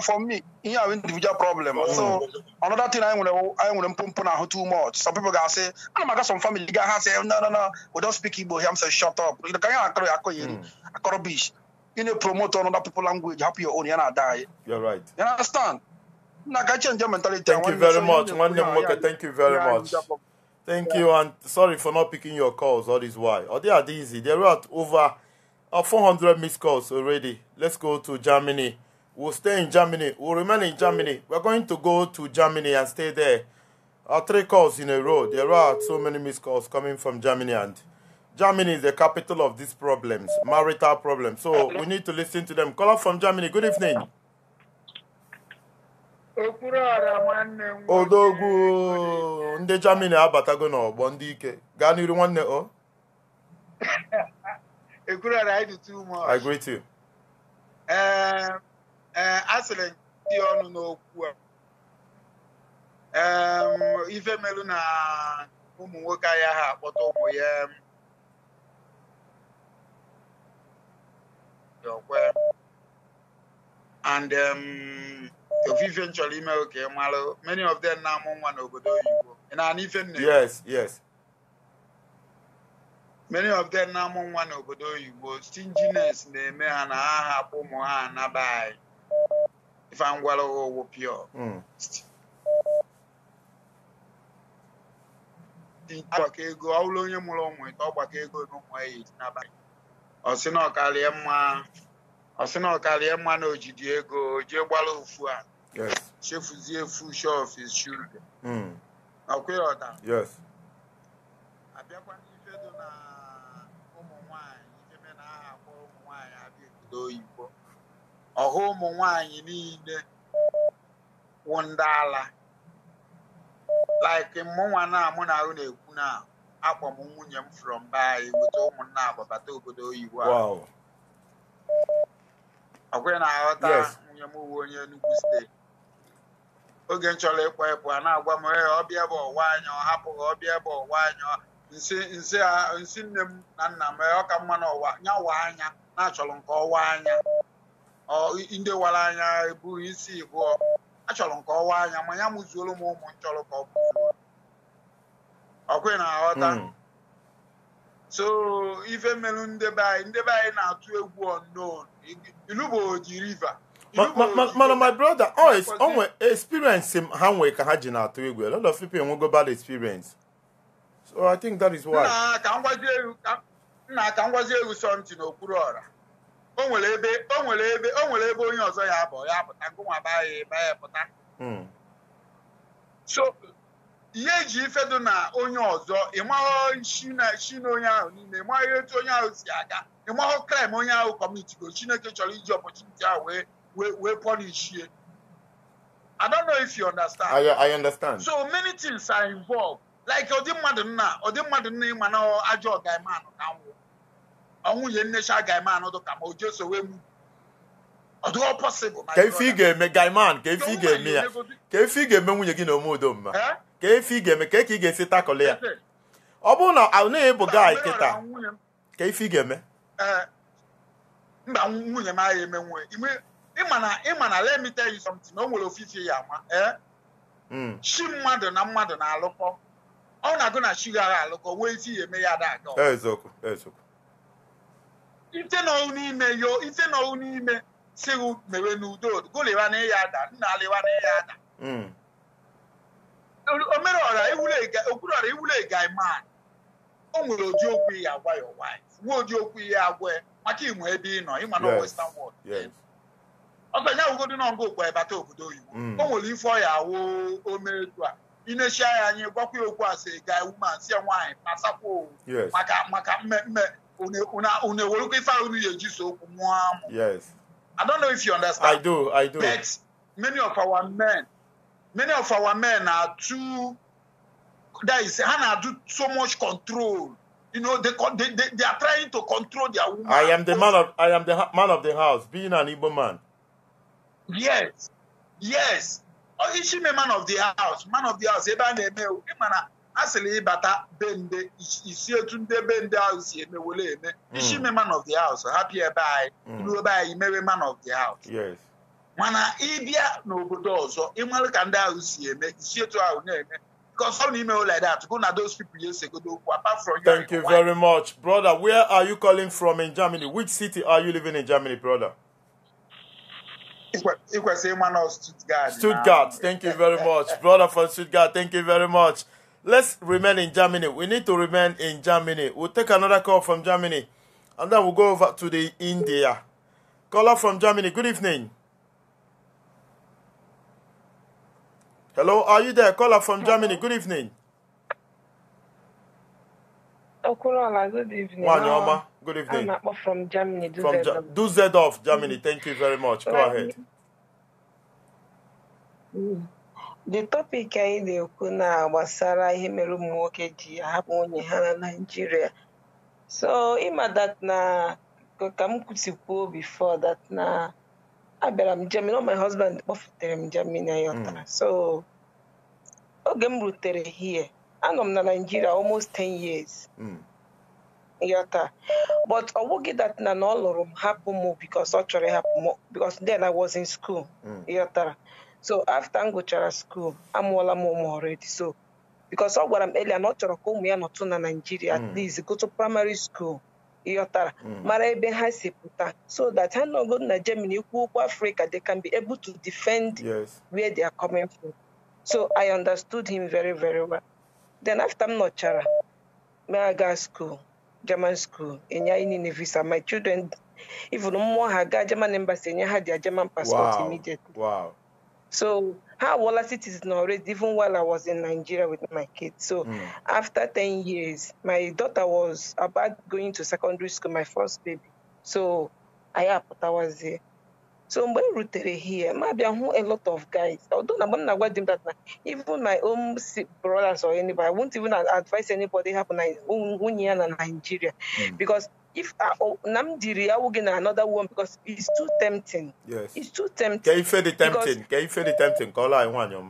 J: for me ihe individual problem hmm. so another thing anyị nwere anyị nwere pump na ahụ too much some people ga-asị ana m some family ga ha say, no no no we don't speak igbo here say shut up hmm. you ihe akọrọ akọrọ bish na-promote another people language your own you understand Thank you very much. Thank you very much. Thank
B: you, and sorry for not picking your calls. All this why. Oh, they are easy. They're at over uh, 400 missed calls already. Let's go to Germany. We'll stay in Germany. We'll remain in Germany. We're going to go to Germany and stay there. Our uh, three calls in a row. There are so many missed calls coming from Germany, and Germany is the capital of these problems, marital problems. So we need to listen to them. Call up from Germany. Good evening. odogwu ndị Germany abatago n'ọgbọ ndị ike gaa n'iru nwanne o
K: I asịrị dị ọnụ n'okwu ife melu na ụmụ nwoke ahịa ha akpọta ụmụ ya and ofufe um, nchọrọ ime oke mara many of them na-amụ nwa n'obodo oyibo ị na-anụ ife yes yes many of them na-amụ nwa n'obodo oyibo stinginess na-eme ha na ha hapụ ụmụ ha anaba if ife ngwara owo pure agbakọ ego ọ onye mụrụ ụmụ ite ọ gbakọ ego n'ụmụ ya n'abalị ọ mma ọ sị na ọkarịa mma na ojidi ego jee gbara ofu a chefuzie efu shof is children hmm. ọkwa ọda
C: abịakwa n'ife dị na
K: ụmụ nwanyị ebe na aha akpọ ụmụ nwanyị abịa obodo oyibo ọha ụmụ nwanyị niile wụ ndị ala like mụnwa na mụ na ahụ na-ekwu na akpọ m nwunye m from be anyị weta ụmụnna agbabata obodo oyibo ahụ ọkwụghị na-aghọta nwunye m uwe onye Enugu steeti oge m chọrọ ịkpọ ịpụ a na-agwa m ee ọbịa bụ ọwa anya ọ hapụghị ọbịa bụ ọwa anya nsị nne m na nna m ọ ka mma na ọwa anya na-achọrọ nke ọwa anya ndị wara anya ebughị isi ịbụọ e achọrọ nke ọwa anya ma ya mụzuoro m ụmụ nchọrọ ka ọ bụzuo ọkwụghị na-aghọta hmm. so ife melu ndebe anyị ndebe anyị na-atụ egwu unknown ilubo river mana my
B: brother oh, onwe experience ha nwee ka ha ji na-atụ egwu a lot of people enwego bad experience so i think that is why
K: nna ka ngwazi egwu something n'okpuru ọra o nwere ebe o nwere ebe ebe onye ọzọ ya abụ ya pụta ngụnwa baa ya pụta hmm. so ihe eji ifedo na onye ọzọ ịmaghọ shi na onye ahụ niile ịmaghọ etu onye ahụ si aga ịmaghọ kraịm onye ahụ kọmitigo chineke chọrọ iji ọpọchuniti ahụ wee wee wee pọlishie I don't know if you understand. I, I understand. So many things are involved. Like ọdị mmadụ nna ọdị mmadụ nna ịma na ajọ ọgaime anụ ka nwụ ọnwụ ye nnecha agaime anụ ma o jeso wee mu ọ dịghọ possible. Ka ife
B: ị ga-eme gaiman ka ife ị ga-eme ya ka ife ị ga-eme nwunye gị na ome udo mma. Eh? ka efe efi ga-eme ka ị ga-esi takọlị ya ọ bụrụ na ọ naghị bụ gaị kịta ka ifi ga-eme
K: mba eh, nwunye m agha eme nwe ịma na let me tell you something o nwere ofifi ya ee. Eh? Hmm. chi mmadụ na mmadụ na-alụkọ ọ na-agụ na chi gara alụkọ wee isi ya eme ya ada ite nọụ n'ime yo ite nọụ n'ime si mere n'udo golịwa na ya ada nna alịwa na ya ada hmm. omere ọra okpuru ọra iwule gai man o nwere ụdị okwu ihe agwa ya white nwe ụdị okwu ihe agwa maka inwe ebe ị nọ ịma na western world ọzọ ya wugodo na nga okpu ebata obodo oyibo mm. o nwere ife ọya awụ omeetu a inesia ya anyị gwakwa ya okwu asị gai woman sie ya nwaanyị pasakwa maka maka mmemme unu ewerukwa ife ahụ unu ga-eji so okwu mụọ amụ I don't know if you understand. I do, I do. But many of our men many of our men are too there is Hannah do so much control. You know, they, they, they, they are trying to control their woman. I
B: am the man of I am the man of the house, being an Igbo man.
K: Yes, yes. Oh, she a man of the house? Man of the house. Ebe a na-eme ụdị mana a sịrị ịbata be nde isi etu ndị be ndị ahụ si emewole eme. Ishi me mm. man of the house, hapụ ebe anyị, iru mm. ebe anyị mewe man of the house. Yes mana ịbịa n'obodo ọzọ ịmara ka ndị ahụ si eme isi etu ahụ na-eme
B: thank you, very much brother where are you calling from in germany which city are you living in germany brother Ikwese Emmanuel Stuttgart. Stuttgart. Thank you very much. Brother from Stuttgart, thank you very much. Let's remain in Germany. We need to remain in Germany. We'll take another call from Germany and then we'll go over to the India. Caller from Germany, good evening. Hello, are you there? Caller from Germany. Good evening.
L: Okunola, good evening. Wanyoma, ah, good evening. I'm from Germany. Do from Ge-
B: Dusseldorf, Germany. Thank you very much. Go ahead.
L: The topic anyị na-ekwu na gbasara ihe mere ụmụ nwoke ji ahapụ nwunye ha na Naịjirịa. So ịma that na ka m kwusikwuo before that na abịara m Germany ọ my husband kpọfutere m Germany ya ọtara hmm. so oge m rutere here anọ m na Nigeria almost 10 years hmm. yọta but ọ bụghị dat na na ọ lụrụ m hapụ m because ọ chọrọ ịhapụ m because then I was in school hmm. yọtara so after m gụchara school amụọla m ụmụ already so because ọ gwara m elia na ọ chọrọ ka ụmụ ya nọtụ na Nigeria at least go primary school yotara mm. mara ebe ha si pụta so that no go na Germany kwukwu Africa they can be able to defend yes. where they are coming from so I understood him very very well then after m nọchara maga school German school enye anyị niile visa my children even mmụọ ha gaa German embassy enye ha their German passport wow. immediately so how Wallace it is not raised even while I was in Nigeria with my kids. So mm. after 10 years, my daughter was about going to secondary school, my first baby. So I I was there. so when we rutere here maybe abịa hụ a lot of guys although na mgbe m na that even my own brothers or anybody I won't even advise anybody happen in nwunye ya Nigeria hmm. because if I, Namdiri will get another one because it's too tempting. Yes. It's too tempting. Can you feel the tempting? Can you feel the tempting? Call I want your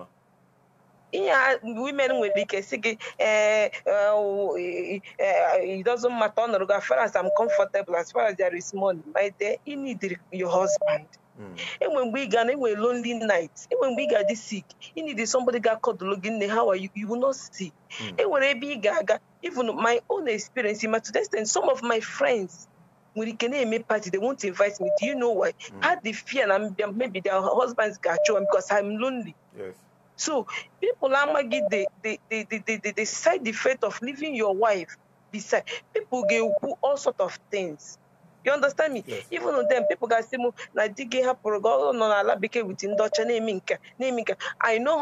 L: Yeah, women will be kissing. Eh, eh, eh, it doesn't matter as far as I'm comfortable as far as there is money my dear you need your husband hmm. And when we ga na lonely night and when we ga sick you need somebody got akodulu gị nne how are you you will not see hmm. enwere ebe i guy ga-aga even my own experience in Matudestin, some of my friends when it can make party, they won't invite me. Do you know why? Mm. I had the fear and maybe their husbands got you because I'm lonely. Yes. So people are the the the the, the, the side effect of leaving your wife beside people get all sort of things. You understand me? Yes. Even on them, people can say, na digging her progo oh, no, na la with in naming, name I know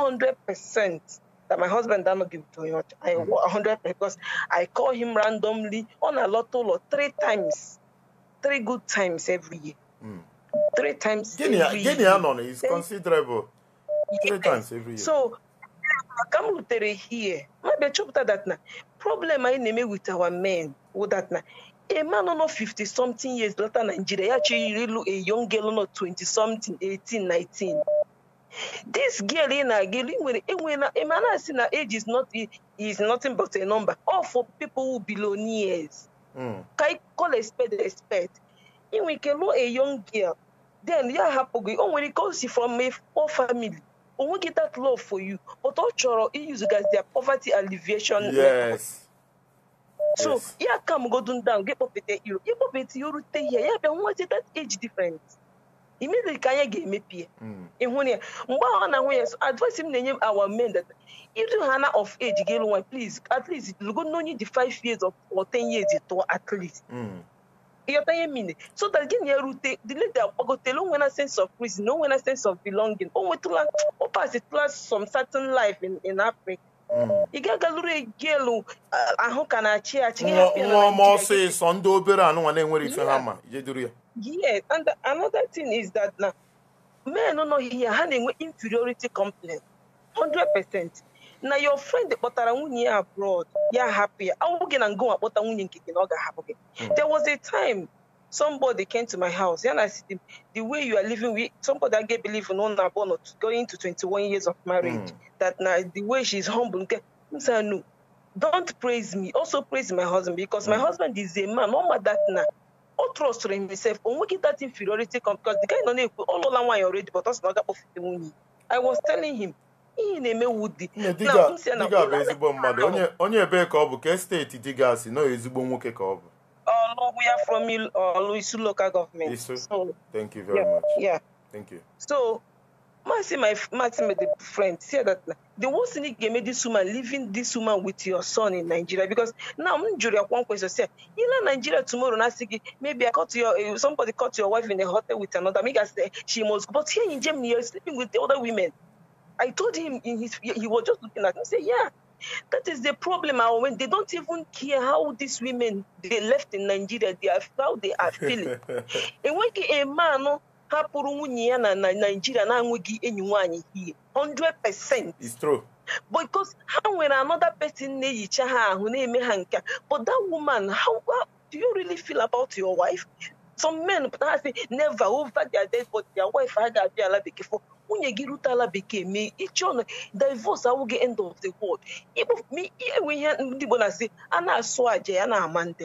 L: 100% that my husband does not give to him. I 100 mm. because I call him randomly on a lot lot three times, three good times every year. Mm. Three times. Guinea, every Guinea year. is Then, considerable. Three times every year. So, come here. Maybe chop that now. problem I name with our men with that now, A man on 50 something years later, Nigeria actually a young girl on 20 something, 18, 19. this girl ị na-aga enwela emana si na age is not is nothing but a number all for people who billionaires hmm. ka ị call expect spade a spade ị nwere a young girl then ya hapụ gị o nwere ike o si from a poor family o nweghị that love for you but ọ chọrọ use their poverty alleviation yes. so ya ka m godun down gị kpọpụta iro ịkpọpụta ya rute ihe ya bịa nweta that age difference immediately ka anya ga-emepie ịhụ na ya mgbe ọ na nwunye so advice him na-enye our men that iru ha na of age ga one, please at least no need the 5 years or 10 years tụọ at least ịghọta ihe mine so that gị na-erute the lady agbagotela when a sense of no when a sense of belonging o oh, nwetụla ọ oh, pasitụla some certain life in, in Africa Mm. ị gagalụrụ elu ahụ ka na-achị achị nwa ọma ọsịsọ
B: ndị obere anụnwa na-enwere ife ha ma jeduru ya
L: yes another thing is that na men nọghị ya ha na-enwe inferiority complex 100% na your friend kpọtara nwunye ya abroad ya hapụ ya awụ gị na ngụnwa kpọta nwunye nke gị na ọ ga-ahapụ gị mm. there was a time somebody came to my house and I said, the way you are living with somebody I get believe in on born going to 21 years of marriage, mm. that now the way she's humble. I no, don't praise me. Also praise my husband because mm. my hmm. husband is a man. No matter that now. All trust in himself. When we get that inferiority come because the guy don't know all along why already, but us not I was telling him. ihe na-eme wudi diga bụ ezigbo mmadụ
B: onye ebee ka ọ bụ ka steeti diga si nọ ezigbo nwoke ka ọ
L: uh, we are from uh, Luisu local government. So,
B: Thank you very yeah, much.
L: Yeah. Thank you. So, Marcy, my my friend, said that the worst thing that made this woman leaving this woman with your son in Nigeria because now I'm jury one question say you know Nigeria tomorrow maybe I caught your eh, somebody caught your wife in a hotel with another make us eh, she must but here in Germany you're sleeping with the other women. I told him in his he was just looking at me say yeah That is the problem. i When they don't even care how these women they left in Nigeria, they are how they are feeling. enweghị eme anụ hapụrụ nwunye ya na Nigeria na-enweghị enyi nwaanyị hie 100%. It's true. Because ha nwere another person na-ehicha ha ahụ na-eme ha nke but that woman how, how do you really feel about your wife? Some men pụtara sị never over their dead but their wife ha ga-abịa ala bekee for nwunye gị rute ala bekee mee ịchị ọnụ divos awụghị end of the world enwe ihe ndị Igbo na-asị a na-asụ aja ya na-ama ndị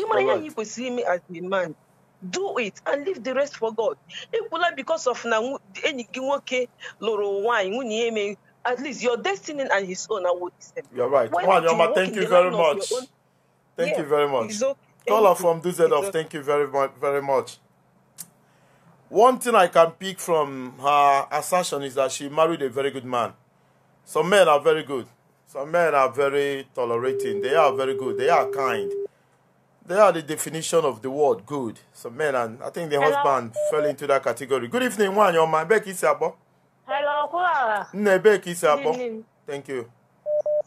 L: ịmara ihe anyị kwesịrị ime as a man do it and leave the rest for God ekwula because of na enyi gị nwoke lụrụ nwaanyị nwunye ya emeghị at least your destiny and his own are what is You're right. Nwanyoma, you thank you very much. Thank you very much. Okay. from DZ of,
B: thank you very much. Very much. One thing I can pick from her assertion is that she married a very good man. Some men are very good. Some men are very tolerating. They are very good. They are kind. They are the definition of the word good. Some men, and I think the Hello. husband fell into that category. Good evening, one. Your man, Becky Sabo.
M: Hello, Kula.
B: Ne, Becky Sabo. Thank you.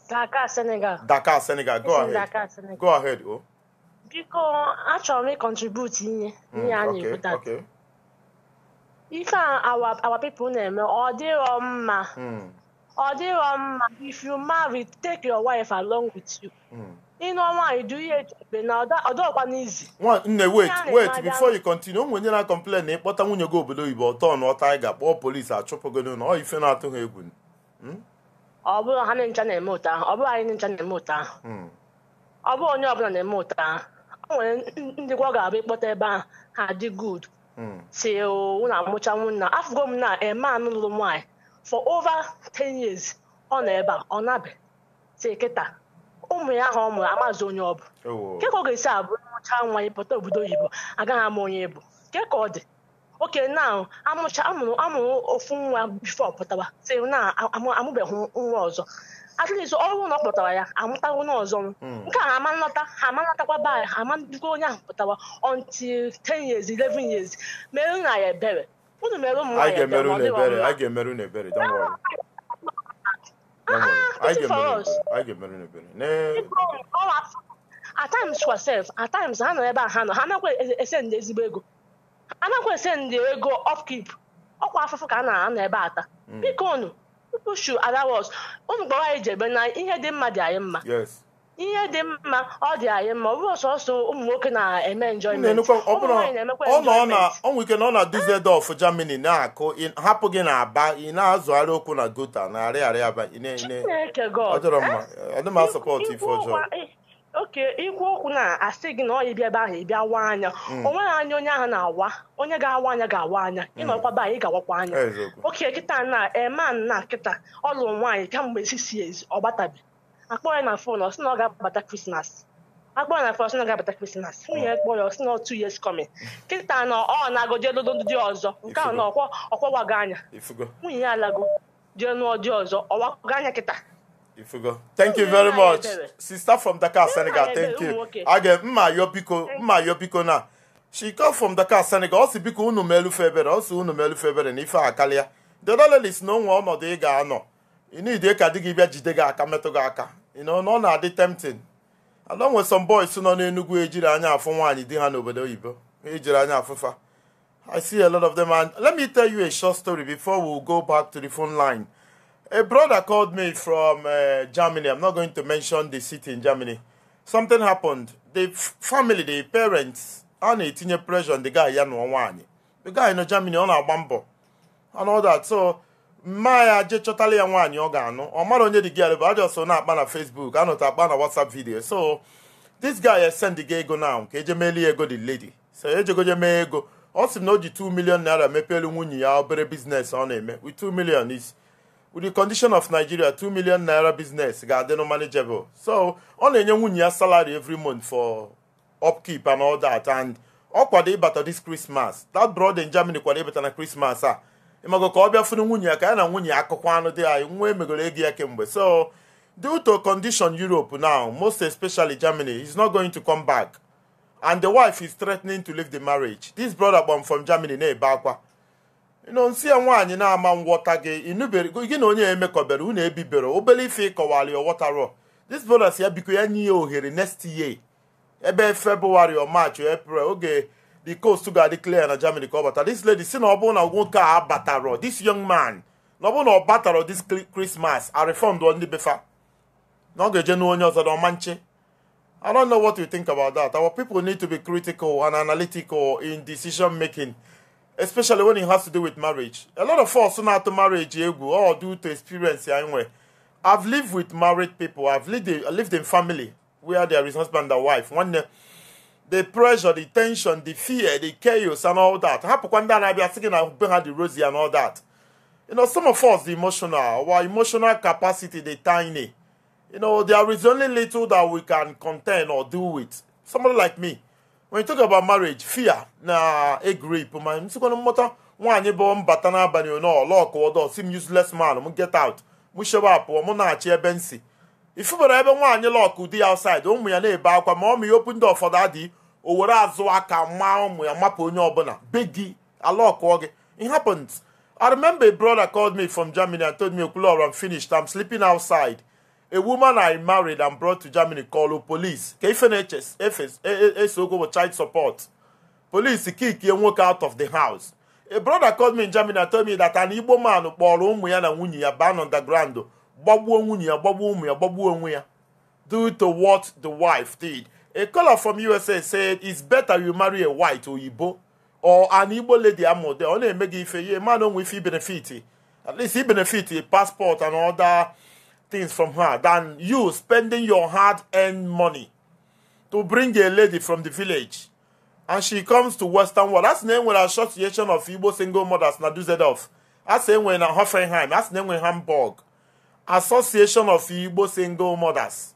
M: Dakar, Senegal.
B: Dakar, Senegal. Go ahead. Dakar, Senegal. Go ahead, oh.
M: Because actually, contribute ịkontribute ihe ihe a na ife a our our people na-eme ọ dịrọ mma ọ hmm. dịrọ mma if you marry take your wife along with you ịnọ nwaanyị du ihe echebe na ọdọọkwa n'izi
B: nne wait wait before you continue onwe onye na complain na ịkpọta nwunye gị obodo oyibo ọtọ na ọta anyị ga-akpọ polisi achụpụgo na ọ ife na-atụ ha egwu hmm?
M: ọ bụrụ ha ncha na-eme ụta ọ bụrụ anyị ncha na-eme ụta hmm. ọ bụrụ onye ọbụla na-eme ụta ọ nwere ndị ọ ga-abụ ịkpọta ebe a, ha dị good si na amụcha nwunna afụgo m na eh, anụ lụrụ nwaanyị for over ten years ọ nọ ebe a ọ nabe si kịta ụmụ ya ahụ ọ mụrụ amazi onye ọ bụ nke ka ọ ga-esi abụ mụcha nwa anyị pụta obodo oyibo agaghị ama onye bụ nke ka ọ dị oke na amụcha amụrụ amụrụ ofu nwa bifo pụtawa si na amụbeghị nwa ọzọ at least ọrụ ụlọ kpọtara ya amụtawo ọzọ hmm. nke a ama nlọta ha ama nlọtakwa be ha onye ahụ pụtara until 10 years 11 years merụ na ya ebere unu mere m nwaanyị
B: ebere ah,
M: oh, at times kwa sef at ha nọ ebe a ha nọ ha nakwa ese ndị ezigbo ego anakwa ese ndị ego ọkwa afụfụ ka a na-anọ ebe ata hmm. biko nụ people should allow us unu gbara anyị jebe na ihe dị mma dị anyị mma ihe dị mma ọ dị anyị mma ọ bụrụ sọsọ ụmụ nwoke na-eme enjoyment ọnwụ
B: ike na ọ na Dusseldorf Germany na-akụ hapụ gị na aba ị na-azụgharị okwu na gota na arịarịa aba
M: ọ dịrọ mma ọ dị ma sọpọt ife ọjọọ oke ikwu okwu na asị gị na ọ ya bịa ebe ahụ ị bịa waa anya mm. o nweghị anya onye ahụ na-awa onye ga-awa anya ga-awa anya ịnọkwaba mm. anyị ga-awakwa anya oke kịta na Eman na kịta ọ lụrụ nwaanyị kemgbe sisi ezi ọ gbatabi akpọ ya na fon ọ sị na ọ ga-abata krismas akpọ ya na fon ọ sị na ọ ga-abata krismas nwunye kpọ ya ọ sị na ọ two years coming kịta na ọ na-agụ jee lodo ndị ọzọ nke ahụ na ọkwọwago anya nwunye ya alago jee nụọ ọzọ ọwago anya kịta
B: go thank you very much sister from dakar senegal thank you aga mma yobiko mma yobiko biko na she come from dakar senegal ọ si biko unu melufe ebere ọ si unu melufe ebere na akalia a karịa the lelis na onwe ọnọdụ ị ga-anọ ịnide ka di gị bịa jide gị aka metụ gị aka na ọ na-adị tempting anọ nwe some boys nọ n'enugwu ejiri anya afụ nwaanyị di ha n'obodo oyibo ejiri anya afụfa i see a lot of them and let me tell you a short story before we go back to the phone line A brother called me from uh, Germany. I'm not going to mention the city in Germany. Something happened. The family, the parents, a na-etinye pressure on the guy ya nụọ The guy nọ Germany, ọ na-agba mbọ and all that. So mma ya je chọtala ya nwaanyị ọ ga-anụ ọ mara onye dị gị bụ ajọ so na-akpa na Facebook anọta akpa na WhatsApp video so this guy has send gị ego now ka eje meeli ego the lady so ejegoje mee ego ọ sị na o ji 2 million naira mepeelu nwunye ya obere biznes ọ na-eme with 2 million is with the condition of Nigeria 2 million naira business ga-adị no manageable so ọ na-enye nwunye ya salary every month for upkeep and all that and ọ kwado ịbata this Christmas that brother in Germany kwado ịbata na Christmas a ịmago ka ọ bịa fụrụ nwunye ya ka ya na nwunye ya akụkọ anụ dị anyị nwa emegoro ego ya kemgbe so due to condition Europe now most especially Germany is not going to come back and the wife is threatening to leave the marriage this brother from Germany na-ebe akwa nonsi ya nwaanyị na-ama ngwọta gị gị na onye ya emekọbere unu ebibere obere ife ịkọwara ya ọghọtara this brothers ya biko ya nye ya ohere next year ebe febụwarị o march april oge the coast ga-adị clear na germany ka ọ bata this lady si na ọ bụrụ na nwoke a batara this young man na ọ bụrụ na ọ batara this christmas a refund ndị befa na ọ ga-eje n'onye ọzọ na ọma nche i don't know what you think about that our people need to be critical and analytical in decision making especially when it has to do with marriage. A lot of us know how to marriage or oh, due to experience anyway. I've lived with married people. I've lived in, lived in family where there is husband and wife. When the, the pressure, the tension, the fear, the chaos, and all that. Happen that I be asking I bring her the rosy and all that. You know, some of us the emotional, our emotional capacity, the tiny. You know, there is only little that we can contain or do with. Somebody like me. when you talk about marriage fear na egrip grip ma nsikwana mmụta nwaanyị bụ mbata n'abalị n'ọlọkụwọdọ si m useless man m get out m shewa apụọ mụ na-achị ebe m si ifubara ebe nwaanyị lọkụ di ya outside ụmụ ya na-ebe akwa ma ọmụ ya okwu ndị ụfọdụ adị o were azụ aka maa ụmụ ya mapụ onye ọbụla be gị alọkụọ gị it happens I remember a brother called me from Germany and told me, Okulor, I'm finished. am sleeping outside. a woman I married and brought to Germany called police. KFNHS, FS, go with child support. Police kick and walk out of the house. A brother called me in Germany and told me that an Igbo man kpọrọ ụmụ ya na nwunye ya ban underground gbagbuo nwunye ya gbagbuo ụmụ ya gbagbuo onwe due to what the wife did. A caller from USA said it's better you marry a white or Ibo, or an Igbo lady amode o only make if ife a man with ife benefit at least he benefit a passport and other things from her than you spending your hard earned money to bring a lady from the village and she comes to Western World. That's name with Association of Igbo Single Mothers Naduzedov. That's name with Hoffenheim. That's name with Hamburg. Association of Igbo Single Mothers.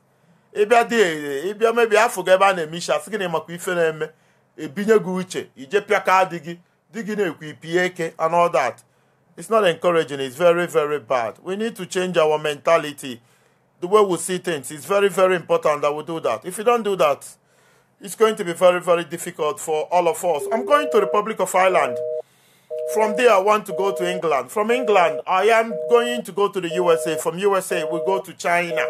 B: Ebe adịghị ebe mebi afọ gị ebe a na-eme isi asị gị na ife na-eme ebinye gị uche ije pịaka di gị di gị na-ekwu ipie eke and all that. It's not encouraging, it's very, very bad. We need to change our mentality, the way we see things. It's very, very important that we do that. If you don't do that, it's going to be very, very difficult for all of us. I'm going to Republic of Ireland. From there, I want to go to England. From England, I am going to go to the USA. From USA, we go to China.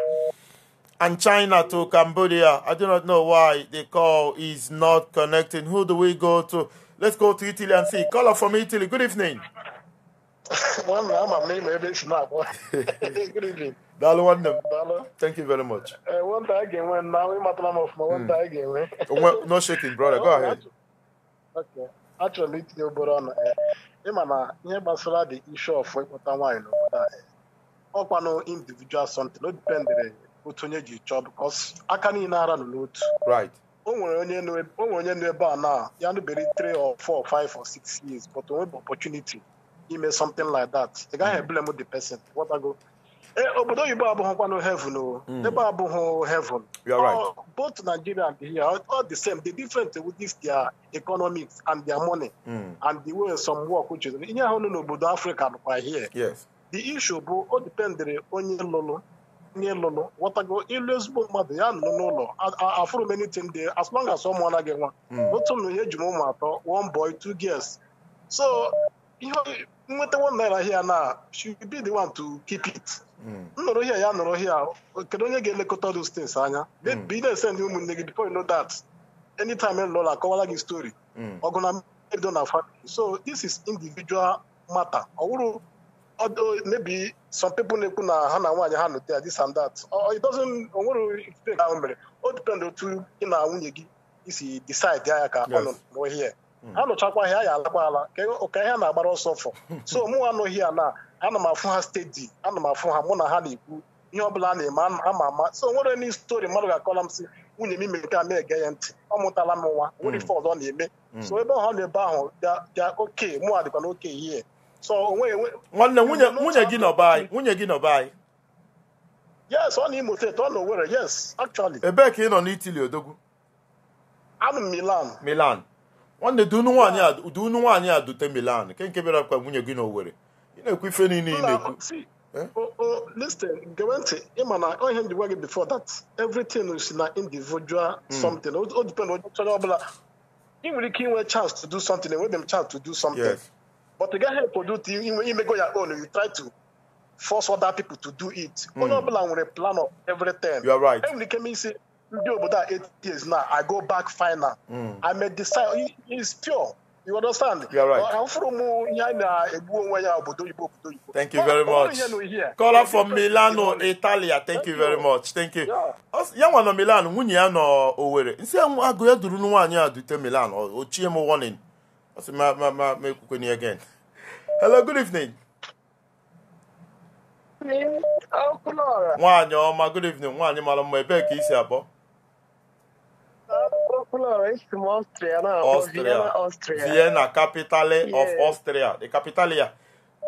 B: And China to Cambodia. I do not know why the call is not connecting. Who do we go to? Let's go to Italy and see. Caller from Italy. Good evening.
E: nwanna ama m na ịma ebe esi na-agba daalụ nwanne m
B: thank you very much
E: nwata a again enwe na ịmatala m of my a ga-enwe
B: no shaking brother go oh, ahead
E: actually it's achọrọ m itinye obere ọnụ ịma na ihe gbasara the issue of ịkpọta nwaanyị n'obodo a ọkwanụ individual something o dipendere otu onye ji chọọ because aka niile ara nọ n'otu right o nwere onye nọ ebe a na ya nụbere 3 or 4 or 5 or 6 years but o nwebe opportunity ime something like that The ị gaghị eblem the person What I go? ghọtago obodo oyibo abụghịkwanụ heaven o ebe abụghị heaven You are right. Oh, both nigeria and here all the same the difference with this their economics and their money mm. and the way some work which is ihe no n'obodo africa nọkwa here yes. the issue bụ o dependere onye lụrụ onye lụrụ ghọtago ịlụ ezigbo mmadụ ya nọ no n'ụlọ afụrụ many things dey as long as someone anaghị nwa otu m ihe eji m ụmụ one boy two girls so ihe nweta nwanna ahịa na she be the one to keep it nọrọ hịa ya nọrọ hịa kedu onye ga-elekọta those things anya ị na-ese ndị ụmụnne gị before you know that anytime lọla akọwala gị story ọgụ na mmeri na family so this is individual matter ọ wụrụ maybe some people na-ekwu na ha na nwaanyị ha nụta ya this and that it doesn't onwere ahụ mere o depend otu gị na nwunye gị isi decide ya ka ọ nọ n'ohie ha nụchakwa ha ya alakwa ala ka ihe na-agbara ọsọ fọ so mụ anụghị ya na ana m afụ ha steeti ana m afụ ha mụ na ha na-ekwu ihe ọbụla a na-eme ama ama so nwere n stori mmadụ ga-akọla m sị nwunye m ime nke a na-ege ya ntị ọ mụtala m nwa nwere mm. ife ọzọ na-eme mm. so ebe ọha na ebe ahụ bịa oke mụ a dịkwa na oke ihe so onwe nwanne nwunye
B: gị nọba anyị nwunye gị nọba anyị
E: yes ọ na Imo steeti ọ na Owerri yes actually
B: ebee ka ị nọ n'itili odogwu
E: anụ Milan
B: Milan nwanne dị unu nwaanyị a dute Milan nke nke bịara kwa nwunye gị na Owerri
E: ị na-ekwu ife niile ị na-ekwu listen gere ntị ịma na ihe m ji gị before that everything is na individual hmm. something o depend onye chọrọ ọbụla ị nwere ike inwe chance to do something enwebe m chance to do something but ị gaghị eproduce imego ya own you try to force other people to do it hmm. onye ọbụla nwere plan of everything enwere ike m isi ndị obodo a eight years na I go back final I'm hmm. i decide is pure you understand? You're right.
C: Thank you very much.
B: kola from Milano, Italia. Thank you very much. Thank you. Ya nwa nọ Milan, nwunye ya nọ Owere. Nsi agụ ya duru nwaanyị a dute Milan. Ochie m warning. Ọ ma ma ma ma ekwukwe again. Hello, good evening. Nwaanyị ọma, good evening. Nwaanyị mara mma, ebee ka isi abụọ?
N: Florence from Austria er Austria. Vienna,
B: capital e yeah. of Austria. The er capital here.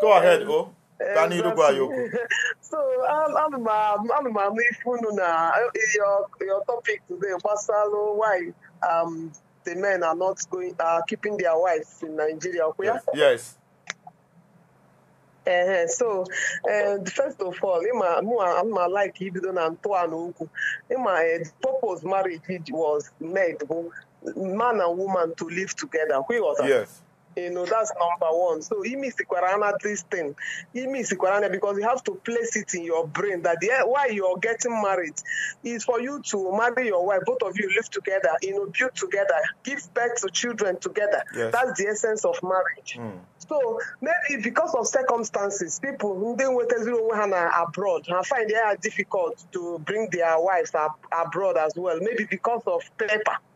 B: Go ahead, um, go.
N: Tani Rubayoku. So, I'm, I'm my, I'm my Mifununa. Eh, your, your topic today, Masalo, why um, the men are not going, are uh, keeping their wives in Nigeria. Yes. yes. ee so eh, first of all ịma ma like ibido na ntọala okwu ịma eh, purpose marriage was made bụ man and woman to live together kwịghọta You know, that's number one. So the sikwarana this thing. the sikwarana because you have to place it in your brain that the, why you're getting married is for you to marry your wife. Both of you live together, you know, build together, give birth to children together. Yes. That's the essence of marriage. Mm. So maybe because of circumstances, people who then wait abroad and find it difficult to bring their wives ab- abroad as well. Maybe because of paper.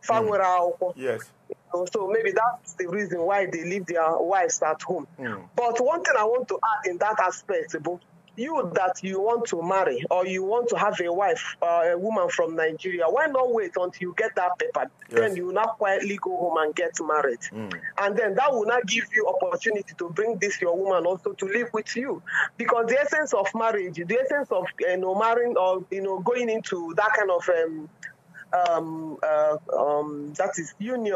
N: Mm. Yes know, um, so maybe that's the reason why they leave their wives at home. Mm. But one thing I want to add in that aspect, you that you want to marry or you want to have a wife, uh, a woman from Nigeria, why not wait until you get that paper? Yes. Then you will not quietly go home and get married. Mm. And then that will not give you opportunity to bring this your woman also to live with you. Because the essence of marriage, the essence of you know, marrying or you know going into that kind of um, um, uh, um, that is union,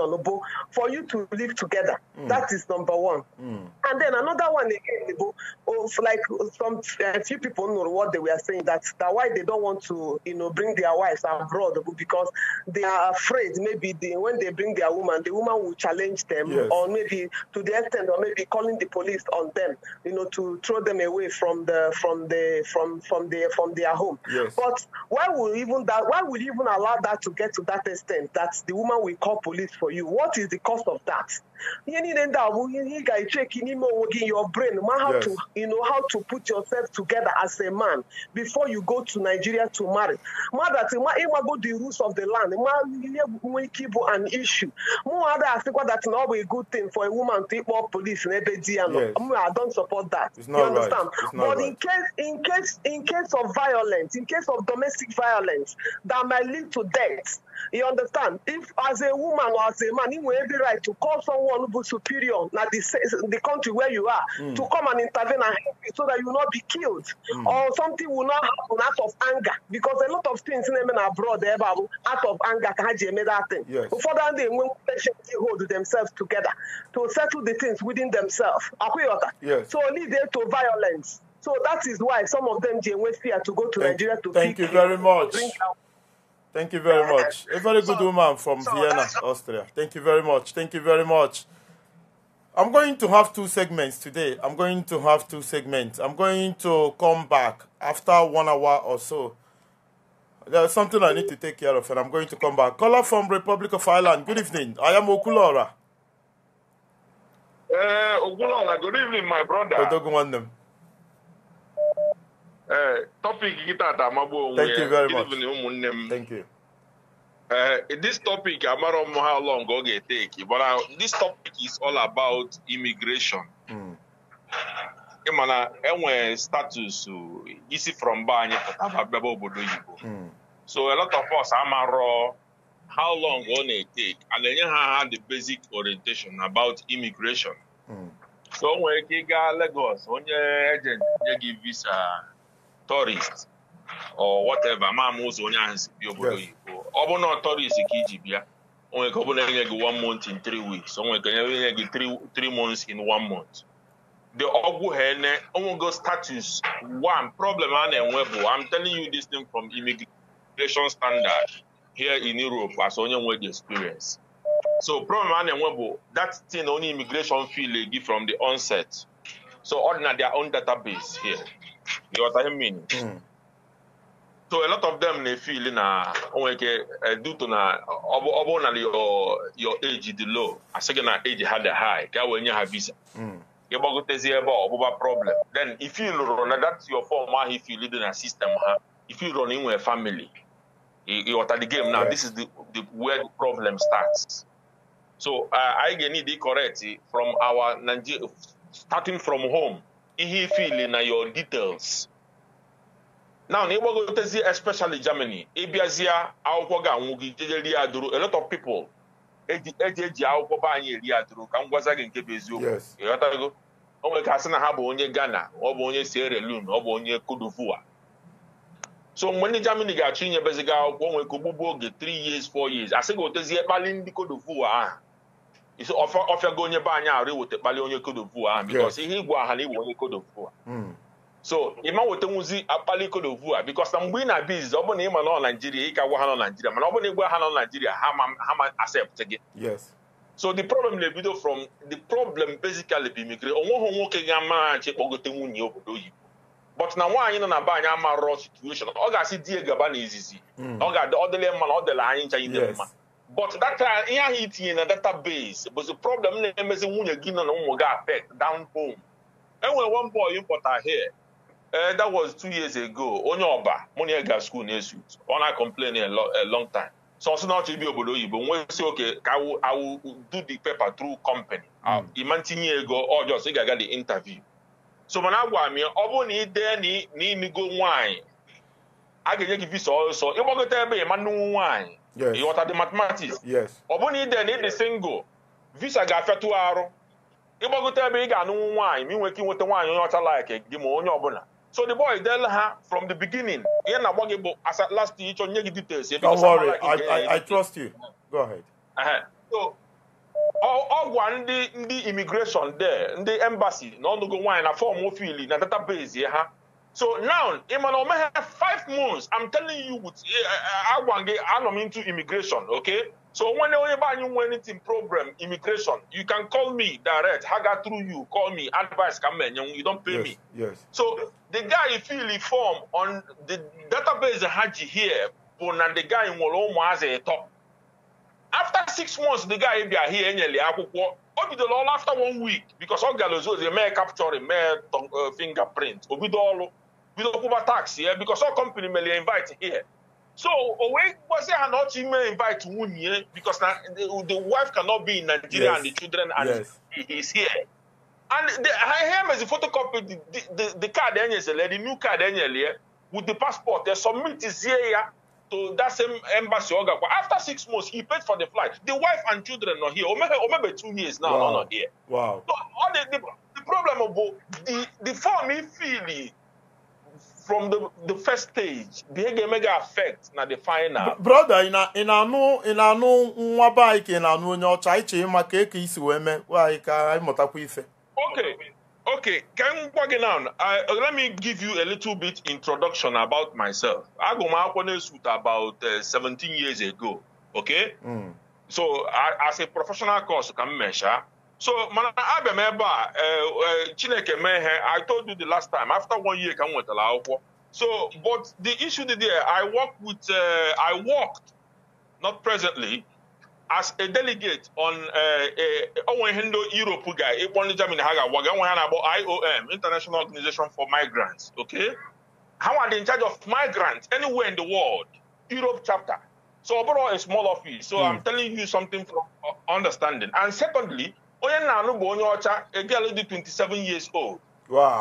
N: for you to live together. Mm. That is number one. Mm. And then another one again, of like some uh, few people know what they were saying that that why they don't want to you know bring their wives abroad because they are afraid maybe they, when they bring their woman, the woman will challenge them yes. or maybe to the extent or maybe calling the police on them, you know, to throw them away from the from the from from their from their home. Yes. But why would even that? Why would even allow that to get to that extent that the woman will call police for you. What is the cost of that? you need end up you guys check in your brain man how yes. to you know how to put yourself together as a man before you go to Nigeria to marry ma that ma ima go the rules of the land ma an issue more other asikwa that na a good thing for a woman to call police in ebe di I don't support that you understand right. but right. in case in case in case of violence in case of domestic violence that might lead to death you understand if as a woman or as a man you have the right to call someone Onubu superior, now the, the country where you are, mm. to come and intervene and help you so that you will not be killed mm. or something will not happen out of anger. Because a lot of things in Yemen abroad, eh, out of anger, can made that thing. Before that, they will hold themselves together to settle the things within themselves. Yes. So lead them to violence. So that is why some of them, they fear to go to thank, Nigeria to Thank you very much. Thank you
A: very much.
B: A very good so, woman from so Vienna, Austria. Thank you very much. Thank you very much. I'm going to have two segments today. I'm going to have two segments. I'm going to come back after one hour or so. There's something I need to take care of, and I'm going to come back. Caller from Republic of Ireland. Good evening. I am Okulora.
F: Uh, Okulora. Good evening, my brother.
O: Eh, topic tọpik gị tata amagbu onwe ya ụmụnne m ee eh, this topic amara m how long ọ ga-eteki mana uh, this topic is all about immigration hmm. ịmana enwere status isi from be anyị pụtaba bịaba obodo Igbo. Hmm. so a lot of us amarọ how long ọ na-eteki a na-enye ha ha the basic orientation about immigration hmm. so o nwere ike ịga Lagos onye ejenti nye gị visa tourist or whatever amaama ụzọ onye ahụ si bịa obodo oyibo ọ bụrụ na tourist ka iji bịa o nwere ka ọ bụrụ enye gị one month in three weeks o nwere ka enye gị three months in one month the ọgwụ ha ene onwego status one problem a na-enwe bụ I'm telling you this thing from immigration standard here in Europe as onye nwe the experience so problem a na-enwe bụ that thing only immigration feel gị from the onset so ọ dị na their own database here ghọta ihe mmiri so a lot of them na-efili na onwere ike eh, duto na ọbụ bụrụ na your age dị low asị gị na age ha dị high ka wee nye ha visa gị hmm. gbagotezi ebe ọbụba problem then if you lụrụ na that your form ahụ ifili dị na system ha ifi lụrụ na inwere family ịghọta the game now this is the, the where the problem starts so anyị ga-need correct from our Nigeria starting from home ihe ifili na your details now na ịgbagotezi especially Germany ịbịazịa akwụkwọ ga-anwụ gị jejerie adụrụ a lot of people eji eji akwụkwọ be anyị eri adụrụ ka m gwaza gị nke bụ eziokwu ịghọtago o nwere ka sị na ha bụ onye Ghana ọ bụ onye Sierra Leone ọ bụ onye Cote so mgbe ndị Germany ga-achọ inyebezi gị akwụkwọ nwere ka ogbugbu oge 3 years 4 years asị gị otezie kpali ndị Cote ahụ isi ọfịago onye be anyị arụ iweta kpali onye kodovu ahụ bikos ihe igwe aha na iwe onye kodovu hmm. so ịma nwetanwuzi akpali kodovu a bikos na mgbe ị na-abịa izizi ọ bụrụ na ị ma nọ naijiria ịka ka gwa ha nọ naijiria mana ọ bụrụ na ịgwa ha nọ naijiria ha ma accept gị so the problem na-ebido from the problem basically bụ imigre onweghị nwoke ga-amara kpọgote nwunye obodo oyibo but na nwaanyị nọ na be anyị amarọ situation ọ ga-asị di gaba n'izizi hmm. ọ ga-adị ọ dịla mma na ọ dịla anyị ncha ide mma but data ihe ahụ itinye na database bụzi problem na-emezi nwunye gị nọ na ụmụ gị affect down home enwere one boy pụta here eh that was two years ago onye ọba mụ na ga na-esu ọ na-complain a long time so ọsọ na ọchọ ibi obodo oyibo nwesi oke ka awu do the paper through company ịma hmm. ah, ntinye ego ọjọọ oh, so ị ga-aga the interview so mana agwa m ọ bụrụ na ị dee na imigo a ga-enye gị visa ọsọ ịgbagote ebe ịma nnukwu nwaanyị yes. ịghọta the mathematics ọ bụrụ na ide na ịdị single visa ga-afịatụ arụ ịgbagote ebe ị ga-anụnwu nwaanyị ma ị nwere ike inweta nwaanyị onye ọcha like gị ma onye ọbụla so the boy del ha from the beginning ihe na-agba gị bụ asa last ịchọ nye gị details ebe I trust you go ahead. ọ gwa ndị ndị immigration there ndị embassy na ọnụgo nwaanyị na fọm ofili na database ha So now, Emmanuel May have five months. I'm telling you, with eh, eh, Agwange, I'm into immigration, okay? So when you want anything problem, immigration, you can call me direct. Haga through you, call me, advice come in, you don't pay yes, me. Yes. So the guy if you reform on the database Haji here, but now the guy in Wolomo has a top. After six months, the guy be here in Obido all after one week, because all Galozo, is a capture, capturing may uh, fingerprint, Obido all bido kwụba tax here because ọ company mere invite here so o wee gwazie not even ọ chọ invite nwunye because na the wife cannot be in Nigeria yes. and the children and yes. he is here and the, ha mezi photocopy the, the, the card enyezele the new card enyele with the passport they submitizie ya to that same embassy After six months, he paid for the flight. The wife and children are here. Omebe, Omebe two years now, wow. not
B: here. Wow. So
O: all the, the, the problem of the, the form he feeling from the, the first stage the ga effect affect na the final brother ị
B: na-anụ nwa baị ka ị na-anụ onye ọcha anyị chee maka eke isi wee mee anyị ka anyị mụtakwa
O: ife okay okay ka m gwa gị now let me give you a little bit introduction about myself agụ m about uh, eh, 17 years ago okay mm. so as a professional course ka m So, man, I remember. Uh, a eh, Chineke mee I told you the last time after one year ka m nwetara akwụkwọ so but the issue there I worked with uh, I worked not presently as a delegate on eh, onwe ihe ndị Europe guy. ekpo ndị Germany ha ga IOM International Organization for Migrants okay How are they in charge of migrants anywhere in the world Europe chapter so overall, a small office so mm. I'm hmm. telling you something from uh, understanding and secondly onye na anụ bụ onye ọcha a girl dị 27 years old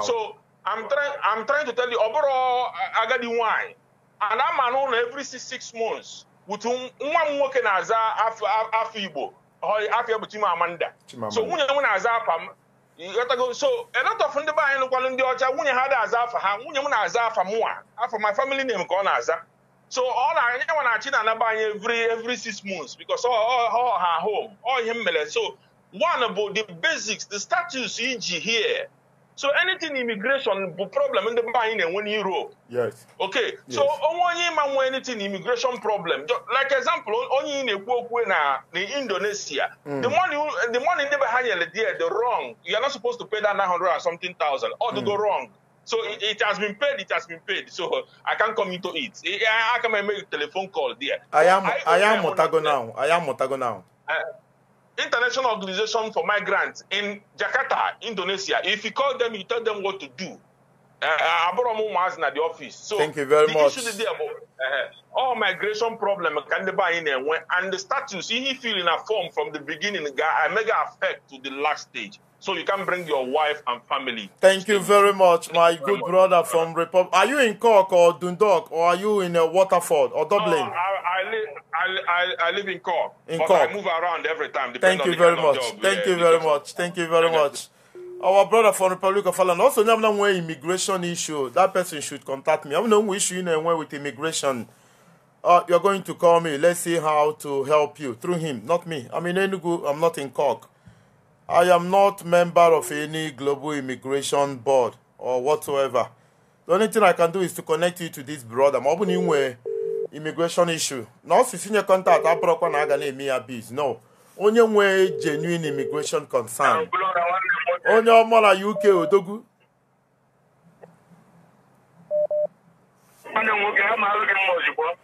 O: so I'm trying I'm trying to tell you ọ bụrụ uh, agadi nwanyị ana ama n'ụlọ every six months with nwa m nwoke na-aza afọ Igbo afọ bụ Chimamanda so nwunye m na-aza afa m so a lot of ndị be anyị nụkwalụ ndị ọcha nwunye ha da-aza afa ha nwunye m na-aza afa mụnwa afọ my family name ka ọ na-aza so ọ na-anya nwa na-achị na anaba anyị every every six months because ọ ha home ọ ihe m mere so One about the basics, the status e.g., here. So anything immigration problem in the mind, and when Europe. Yes. Okay. Yes. So oh, only man when anything immigration problem. Like example, only in a book when in Indonesia. Hmm. The money the money never higher there, the wrong. You are not supposed to pay that nine hundred or something thousand or to mm. go hmm. wrong. So it, it, has been paid, it has been paid. So I can't come into it. I, I can make a telephone call there. I am I, I am
B: Motago now. I am Motago now.
O: Uh, International Organization for Migrants in Jakarta, Indonesia. If you call them, you tell them what to do. Uh, eh, Aboromo was at the office. So Thank you very the much. Issue there uh, all migration problem can they buy in there and the status he feeling a form from the beginning a mega effect to the last stage. So you can bring your wife and family.
B: Thank you very much, Thank my good much. brother from Republic. Are you in Cork or Dundalk or are you in uh, Waterford or Dublin? No,
O: I, I, live, I, I, live in Cork. In but Cork. I move around every time. Thank you very much. Thank you very
B: much. Thank you very much. Our brother from Republic of Ireland also have no immigration issue. That person should contact me. I have no issue in anywhere with immigration. Uh, you're going to call me. Let's see how to help you through him, not me. I'm in Enugu. I'm not in Cork. I am not member of any global immigration board or whatsoever. The only thing I can do is to connect you to this brother. I'm ọ bụ na immigration issue. Na ọ sisi nye contact abụrọkwa na aga na-eme ya biz. No. only nwee genuine immigration concern. Onye ọmọ na UK odogwu.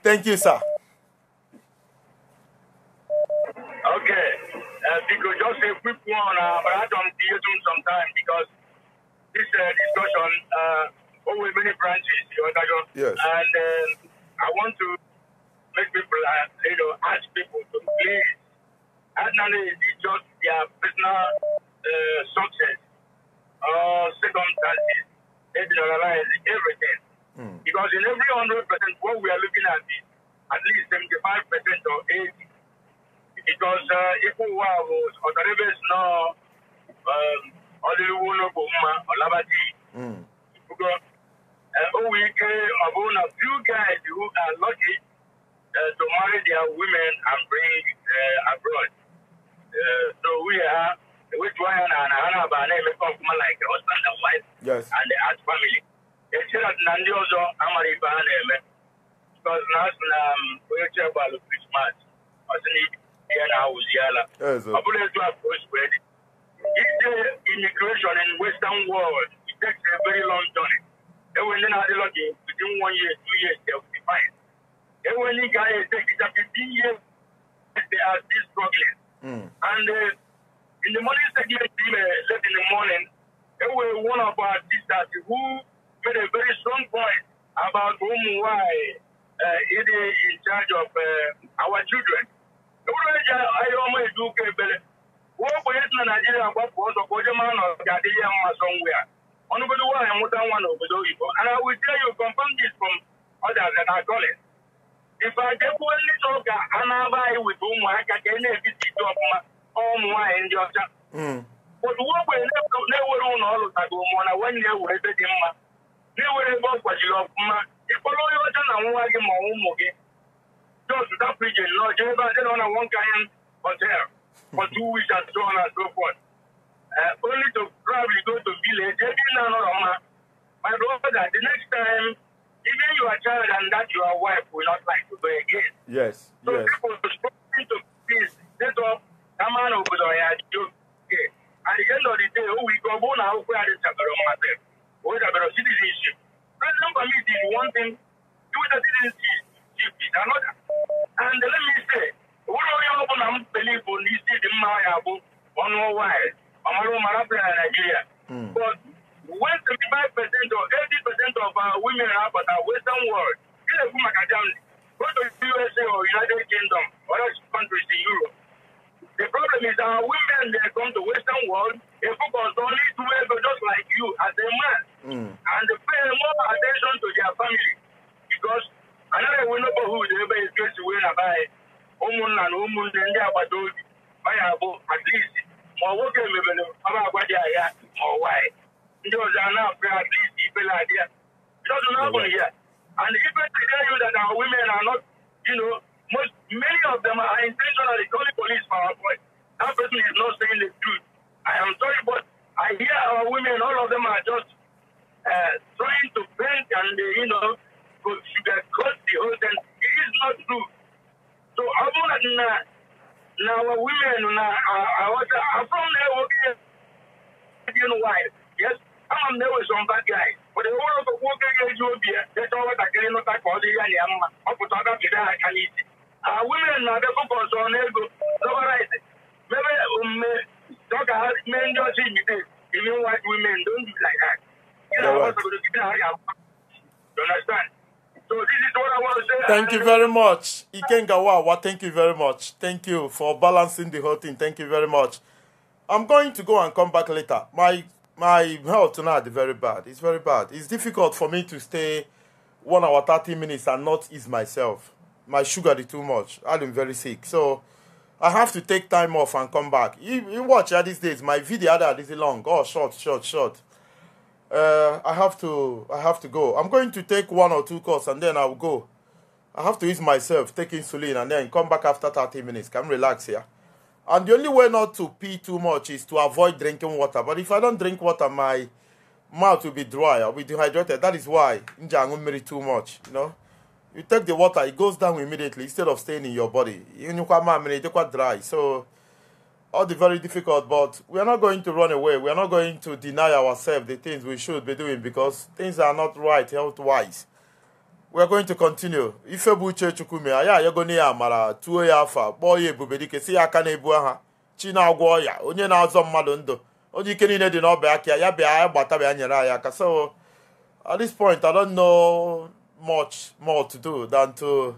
B: Thank you, sir.
A: Okay. uh, just a quick one, uh, but I don't be using some time because this uh, discussion
C: uh, over many branches, you understand? Yes. And uh, I want to make people, uh, you know, ask people to please, not only just their
A: personal uh, success or circumstances, they generalize everything. Mm. Because in every 100%, what we are looking at is at least 75% or 80 because uh, ikú wa o ọ̀dọ́dẹ́bẹ̀sì náà ọdịnihu n'obo mma ọlabaji because o wee ike ọ bụrụ na few guys who are lucky uh, to marry their women and bring uh, abroad uh, so we are ewetu anya na na ha na-aba na-emekọ ọfụma like husband and wife yes. and as uh, family echere na ndị ọzọ amara ibe ha na-eme because na asụ na onye chebụ alụ krismas ọ sị na ibi yala uziyala abulethwa prospered ide immigration in western world it takes a very long journey ewe ndị na-adịlọ dị within one year two years they will be fine ewe ndị ga-ahụ ete kita fifteen years they are still struggling mm. and uh, in the morning segment team uh, late in the morning there ewe one of our sisters who made a very strong point about whom why uh, it is in charge of uh, our children uru eji ahịa ọma eji ụka ebele uwe ogbenye si na naijiria gbapụ ọzọ ka oje mara na ga adị ya mma sọ ngwa ya ọnụgodo nwaanyị nwụta nwa na obodo oyibo ana witie ya compounded from others na goli ife ajekwuo ndị so ka a na-aba anyị wite ụmụaka ka e na-ebite ite ọfụma ụmụ nwaanyị ndị ọcha otu hmm. uwe ogbenye na-ewere ụlọ ọrụ tago mụọ na nwanne ya were ebe dị mma na-ewere ebe ọ kwajiri ọfụma ịkpọrọ onye ọcha na nwa gị ma ụmụ gị those without preaching, Lord, You Jehovah, they don't have one kind hotel for two weeks and so on and so forth. Uh, only to probably go to village, every now and then. My brother, the next time, even your child and that your wife will not like to go again.
O: Yes, so yes. people
A: spoken to please. they talk, come on over there, Okay. At the end of the day, oh, we go, go now, where are the Sabaroma myself? Where are the citizenship? President Committee is one thing, do the citizenship. PDP another. And let me say, ụlọ onye ọ bụla m believe bụ na isi dị mma ya bụ ọnụ ọwa anyị ọmara ụmara bịara na Nigeria. Hmm. But when 75% or 80% of our women are at our western world, ị na-ekwu maka Germany, go to the USA or United Kingdom or other countries in Europe. The problem is our women they come to western world, they focus only to women just like you as a man. Mm. And they pay more attention to their family because anaghị enwe neighborhood ebe etu esi wee naba anyị ụmụnna na ụmụnne ndị agbata obi manya abụ at least ma ọ nwoke mebere ọba agwa dị ahịa ma ọ nwaanyị ndị ọzọ a na-apụ ya at least ibela adị ya jọdụ n'agbụghị ya and even to tell you that our women are not you know most many of them are intentionally calling police for our boy that person is not saying the truth i am sorry but i hear our women all of them are just uh, trying to paint and uh, you know could sugarcoat the whole thing. It is not true. So abụrụ na na our women na aghọta abụrụ na ewoke Indian wife. Yes, ama m na with some bad guys. But the whole of nwoke ga-eji obi ya deta nwatakịrị nụta ka ọ dị ya na ya mma. Ọ pụta ọ gapịda ha aka n'isi. Our women na-abịa fọkọs ọnụ ego dọbarit mebe omume ọ ga mee ndị ọcha ibite even white women don't do like that. You know, I'm going to give you a You understand? So this is what I want to say. Thank you
B: very much. Ikengawawa, thank you very much. Thank you for balancing the whole thing. Thank you very much. I'm going to go and come back later. My my health tonight is very bad. It's very bad. It's difficult for me to stay one hour thirty minutes and not ease myself. My sugar is too much. I'm very sick. So I have to take time off and come back. You, you watch at these days. My video ah, that is long. Oh, short, short, short uh, I have to I have to go. I'm going to take one or two calls and then I'll go. I have to ease myself, take insulin and then come back after 30 minutes. Can relax here. And the only way not to pee too much is to avoid drinking water. But if I don't drink water, my mouth will be dry. I'll be dehydrated. That is why don't marry too much, you know. You take the water, it goes down immediately instead of staying in your body. You know, dry. So all the very difficult, but we are not going to run away. We are not going to deny ourselves the things we should be doing because things are not right health wise. We are going to continue. Ifebu uche chukwume anyị ayagoni mara tuo ya afa kpọọ ya si akane aka na-ebu aha chi na-agwọ ọya onye na-azọ mmadụ ndụ onye ike niile ya bịa ya gbata bịa nyere anyị aka so at this point I don't know much more to do than to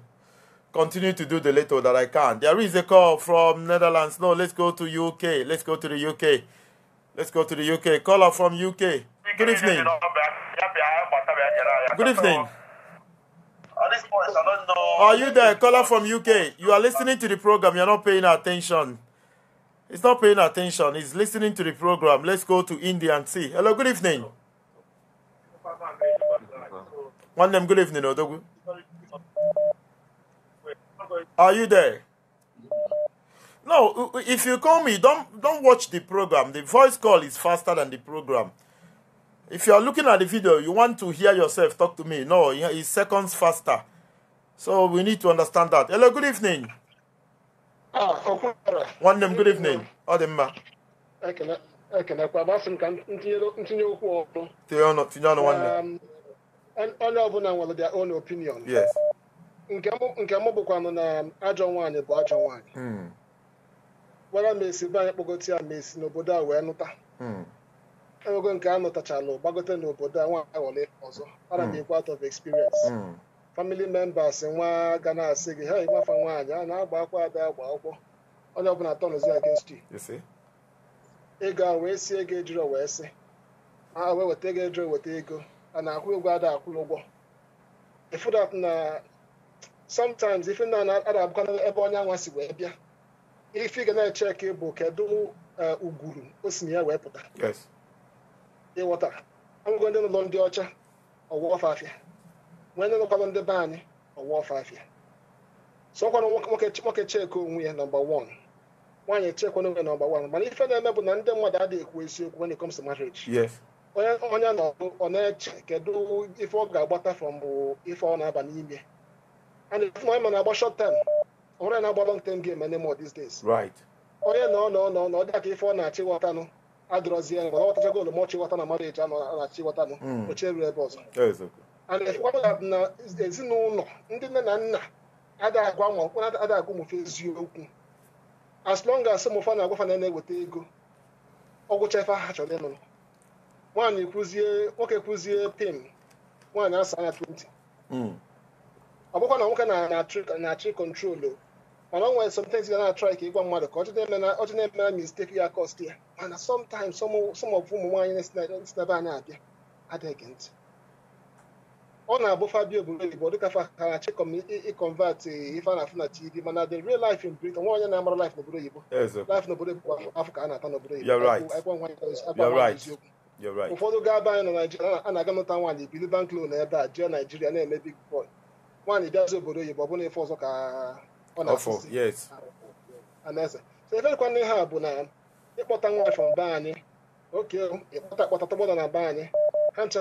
B: continue to do the little that I can. There is a call from Netherlands. No, let's go to UK. Let's go to the UK. Let's go to the UK. Caller from UK. Good evening. Good evening. Are you there? Caller from UK. You are listening to the program. You're not paying attention. It's not paying attention. It's listening to the program. Let's go to India and see. Hello, good evening. One name, good evening, are you there? No, uh, uh, if you call me, don't don't watch the program. The voice call is faster than the program. If you are looking at the video, you want to hear yourself talk to me. No, it's seconds faster. So we need to understand that. Hello, good evening. Ah, okay. One name, good evening. Odemma.
P: ekelekwa masị m ka ntinye okwu ọrụ
B: tinye ọnụ nwanne
P: um, onye ọbụla nwere their own opinion yes. nke mụ bụkwanụ na ajọ nwaanyị bụ ajọ nwaanyị gwara hmm. m esi be kpọgote ya ma esi n'obodo a wee nụta hmm. ewego nke a nụtachalụ gbagote n'obodo a nwa aghọla ọzọ ana m hmm. ekwe out of experience family members nwa ga na-asị gị ha ịgbafa nwaanyị a na-agba akwa ada agba akwụkwọ onye ọbụla tọnụzi against you ego a wee si ego ejiri wee sị a wee weta ego ejiri weta ego a na-akwụ ụgwọ ada akwụrụ ụgwọ ịfụdat na sometimes ife ndị uh, a na-abụkwa ebe onye anwa si wee bịa ife ga na-echeki bụ kedu ugwuru o ya wee pụta ịghọta ọgụgụ ndị ụlọ ndị ọcha ọwụwa nwee ndị ndị be anyị sọkwanụ nwoke onwe ya nọmba wan nwaanyị onwe nọmba wan mana ife na-eme bụ na ndị mmadụ adịghị ekwu eziokwu marriage onye ọ na-eche kedu ife ọ ga-agbata ife ọ na-aba n'ime and if my man agba short term onwere na-agba long term game anymore these days right onye nọ ife ọ na-achịghọtanụ na mmadụ na-achịghọtanụ oche ruru ebe ọzọ and efekwa na ezinụlọ ndị nne na nna adịghị agwa nwa mkpụrụ adịghị eziokwu as long as na na-eweta ego ọgwụcha ife ha chọrọ ịnụ nwaanyị kwuzie nwoke kwuzie pim nwaanyị asa anya ọ bụkwa na nwoke na-achị kọntrolu mana ọ nwere sometimes ga na-atrai ka ịgwa mmadụ ka ọchị na-emere mistake ya kost ya mana sometimes some of ụmụ nwaanyị na-esi na n'ebe anyị abịa adịghị ntị ọ na-abụ fabio bụrụ igbo dịka faharachi ịkọnvat ife na tv mana the real life in britain nwa onye na-amara life n'obodo oyibo life n'obodo oyibo afọ a na-ata n'obodo oyibo
B: eziokwu
P: ụfọdụ gaa be anyị nọ naijiria a na-aga nụta nwaanyị bili bank loan ebe a jee naijiria na-eme big boy nwaanyị bịazi obodo oyibo ọ na ife ọzọ ka ọ
C: na-anaeze
P: so eferekwana ihe a bụ na ịkpọta nwaanyị from be anyị oke ịkpọta akpọta tọgbọda na be anyị ha ncha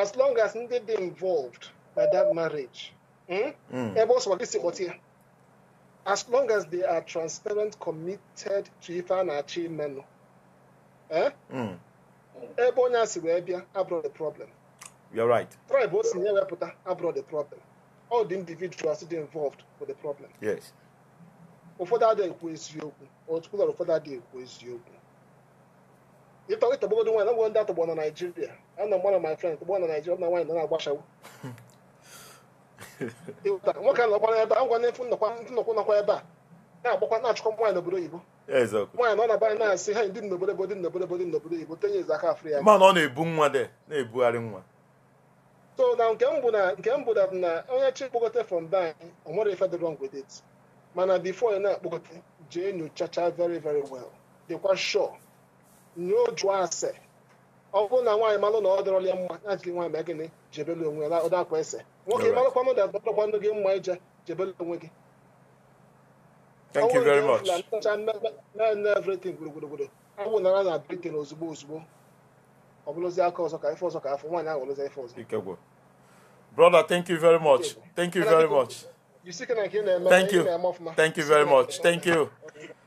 P: as long as ndị dị involved na that marriage ebe ọ sọkwa gị si kpọta ya as long as they are transparent committed to ife a na-achọ imenụ eh? hmm. ebe onye a si wee bịa abroad the problem You're right. tribe o si nye wepụta abroad the problem all the individuals dị involved for the problem yes ụfọdụ adịghị ekwu eziokwu otukpụla ụfọdụ adịghị ekwu eziokwu ịtọgbogodo nwaanyị nagbogo ndị atọgbọ na naijiria a na mgba na my friend tọgbọ na naijiria na nwaanyị na na-agbachawo nwoke nọkwa ebe a ngwa n'efu nnọkwa nọkwa ebe a na-agbakwa na-achụkwa nwaanyị n'obodo oyibo nwaanyị nọ na banyị na-asị ha ndị n'obodo ebo dị n'obodo obodo n'obodo oyibo tenye eze aka afrịka mana ọ
B: na-ebu nwa de na-ebugharị nwa
P: so na nke mbụ na nke mbụ dat na onye chi kpọkọta from be anyị o nwere ife dị wrong with it mana before ị na-akpọkọta jee nyochacha very very well dịkwa sure nyoo jụọ ase ọ bụrụ na nwaanyị malụ na ọ dọrọ ya mma ya jiri nwaanyị mee gịnị jebele onwe ya ụda akwa ese nwoke malụkwa m dat dọrọkwa ndụ gị mma ije jebele onwe gị Thank you very much. na everything gburugburu awụ nara na Britain ozugbo ozugbo brother
B: thank you very much thank you very much
P: thank you thank you very much
B: thank you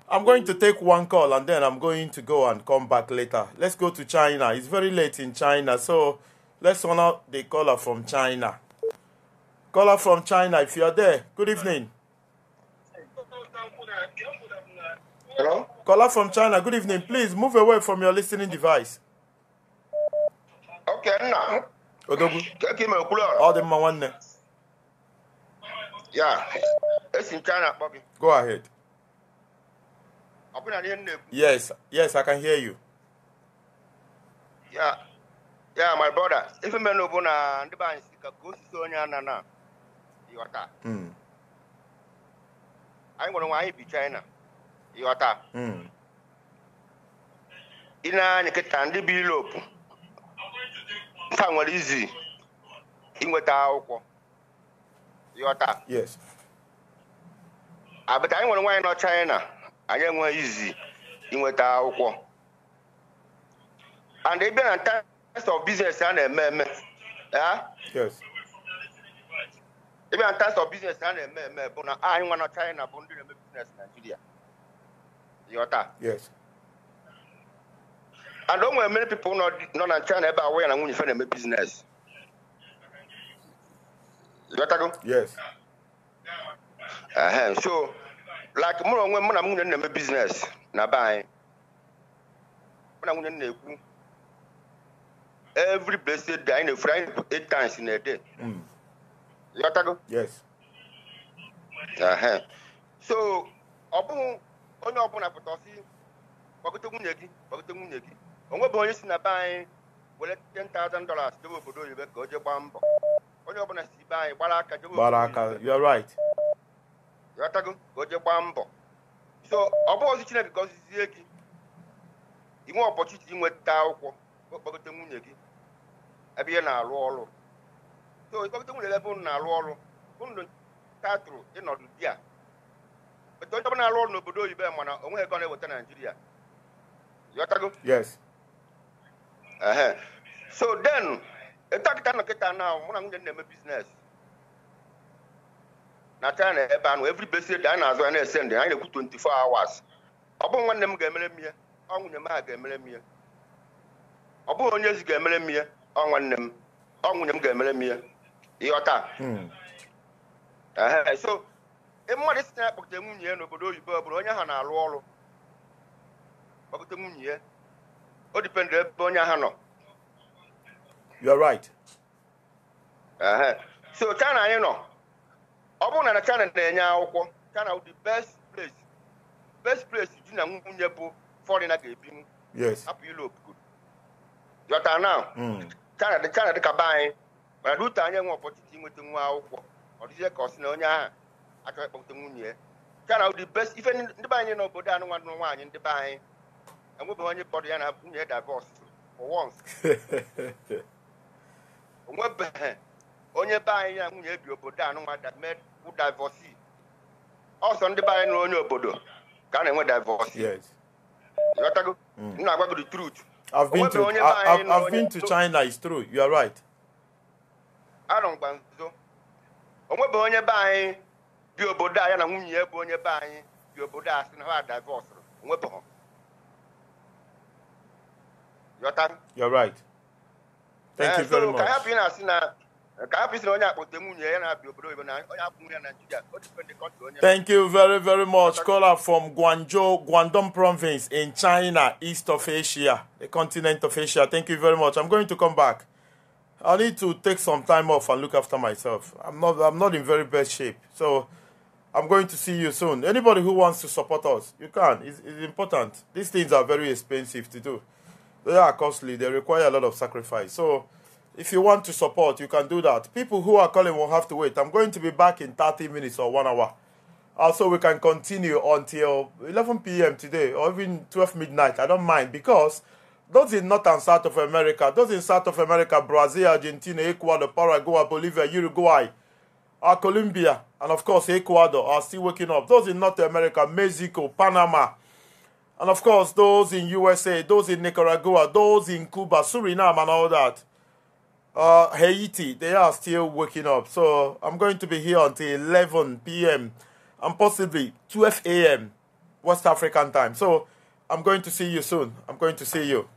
B: I'm going to take one call and then I'm going to go and come back later. Let's go to China. It's very late in China, so let's honor the caller from China. Caller from China, if you're there, good evening. Hello? Caller from China, good evening. Please move away from your listening device.
Q: Okenna Odogwu ọ dị mma nwanne ya esi nke a na-akpọ gị go ahead Ọ bụ na-ekwu
B: yes yes I can hear you
Q: ya ya my brother ife mmenụ bụ na ndị be anyị ka ka osisi onye anana, ịghọta hmm. anyị nwere nwa anyị bi China ịghọta ị hmm. na-anya kịta ndị bi Europe ife nwere izi inweta akwụkwọ yọta abịta anyị nwere nwaanyị nọ China anyị enweghị izi inweta akwụkwọ and ị bịa na terms of business a na-eme eme ị bịa na terms of business a na-eme eme bụ na anyị nwa nọ China bụ ndị na-eme business Nigeria yọta And don't many people not not in China about where and when to find them a business. You go? Yes. Uh-huh. So like more when when I'm in a business, na buy. When I'm in a every blessed day in a Friday eight times in a day. Mm. You go? Yes. Uh-huh. So ọbụghị onye ọbụla pụta ọsị gbagota nwunye gị gbagota nwunye gị onwe bụ onye si na be anyị were 10,000 dollars dobe obodo oyibo ka o jee gbaa mbọ onye ọbụla si be anyị gbara aka dobe gbara aka you're right ghọtago ka o jee gbaa mbọ so ọ bụ ozi chineke ka ozizie gị inwe ọpọchiti inweta akwụkwọ okpọgote nwunye gị ebe ihe na alụ ọrụ so ịkpọgote nwunye gị ebe unu na alụ ọrụ unu tatụrụ ịnọdụ di a onye ọbụla na-arụ ọrụ n'obodo oyibo mana onweghị ego na-eweta naijiria ghọtago yes so then ịtakịta nọkịta naa mụ na nwunye na-eme biznes na china ebe anụ every besi ede anyị na-azụ ya na-ese ndị anyị na-ekwu 24 hours ọ bụghị nwanne m ga-emere m ọ nwunye m a ga-emere m ọ bụghị onye ezi ga-emere m ọ nwanne m ọ nwunye m ga-emere m ihe ịghọta hmm. so e mmadụ isi na ya kpọkọta nwunye n'obodo oyibo bụrụ onye ha na-alụ ọrụ kpọkọta nwunye ya o dipendụ ebe onye ahụ nọ you are right so china anyị nọ ọ bụrụ na china na-enye akwụkwọ china the best place best place di na nwunye bụ foreigner ga-ebinwu hapụ europe jọta na china dịka be anyị mana rute anyị nwe ọpọchịchị nweta nwa akwụkwọ ọ dịzie ka ọ sị na onye ahụ achọghị ịkpọta nwunye ya china the best ife ndị be anyị n'obodo anụnwa nwaanyị ndị be anyị enwebeghị onye kpọrọ ya na nwunye e divọs onwebeghị onye be anyị ya nwunye bi obodo anụnwa divọsi ọsọ ndị be anyị onye obodo ka a na-enwe divọsi mm. na-agwa gị the truth I've been, to, I, I've, been to
B: China, it's true, you are right.
Q: Arọngwa nso, onwebeghị onye be anyị bi obodo a ya na nwunye bụ onye be anyị bi obodo a sị na ha divọsụrụ onwebeghị your time.
B: You're right. Thank you eh, so very much. Thank you very very much. Caller from Guangzhou, Guangdong province in China, east of Asia, the continent of Asia. Thank you very much. I'm going to come back. I need to take some time off and look after myself. I'm not I'm not in very bad shape. So I'm going to see you soon. Anybody who wants to support us, you can. It's, it's important. These things are very expensive to do. They are costly, they require a lot of sacrifice. So if you want to support, you can do that. People who are calling will have to wait. I'm going to be back in 30 minutes or one hour. Also, we can continue until 11 p.m. today or even 12 midnight. I don't mind because those in North and South of America, those in South of America, Brazil, Argentina, Ecuador, Paraguay, Bolivia, Uruguay, uh, Colombia, and of course Ecuador are still waking up. Those in North America, Mexico, Panama, and of course, those in USA, those in Nicaragua, those in Cuba, Suriname, and all that. Uh, Haiti, they are still waking up. So I'm going to be here until 11 p.m. and possibly 12 a.m. West African time. So I'm going to see you soon. I'm going to see you.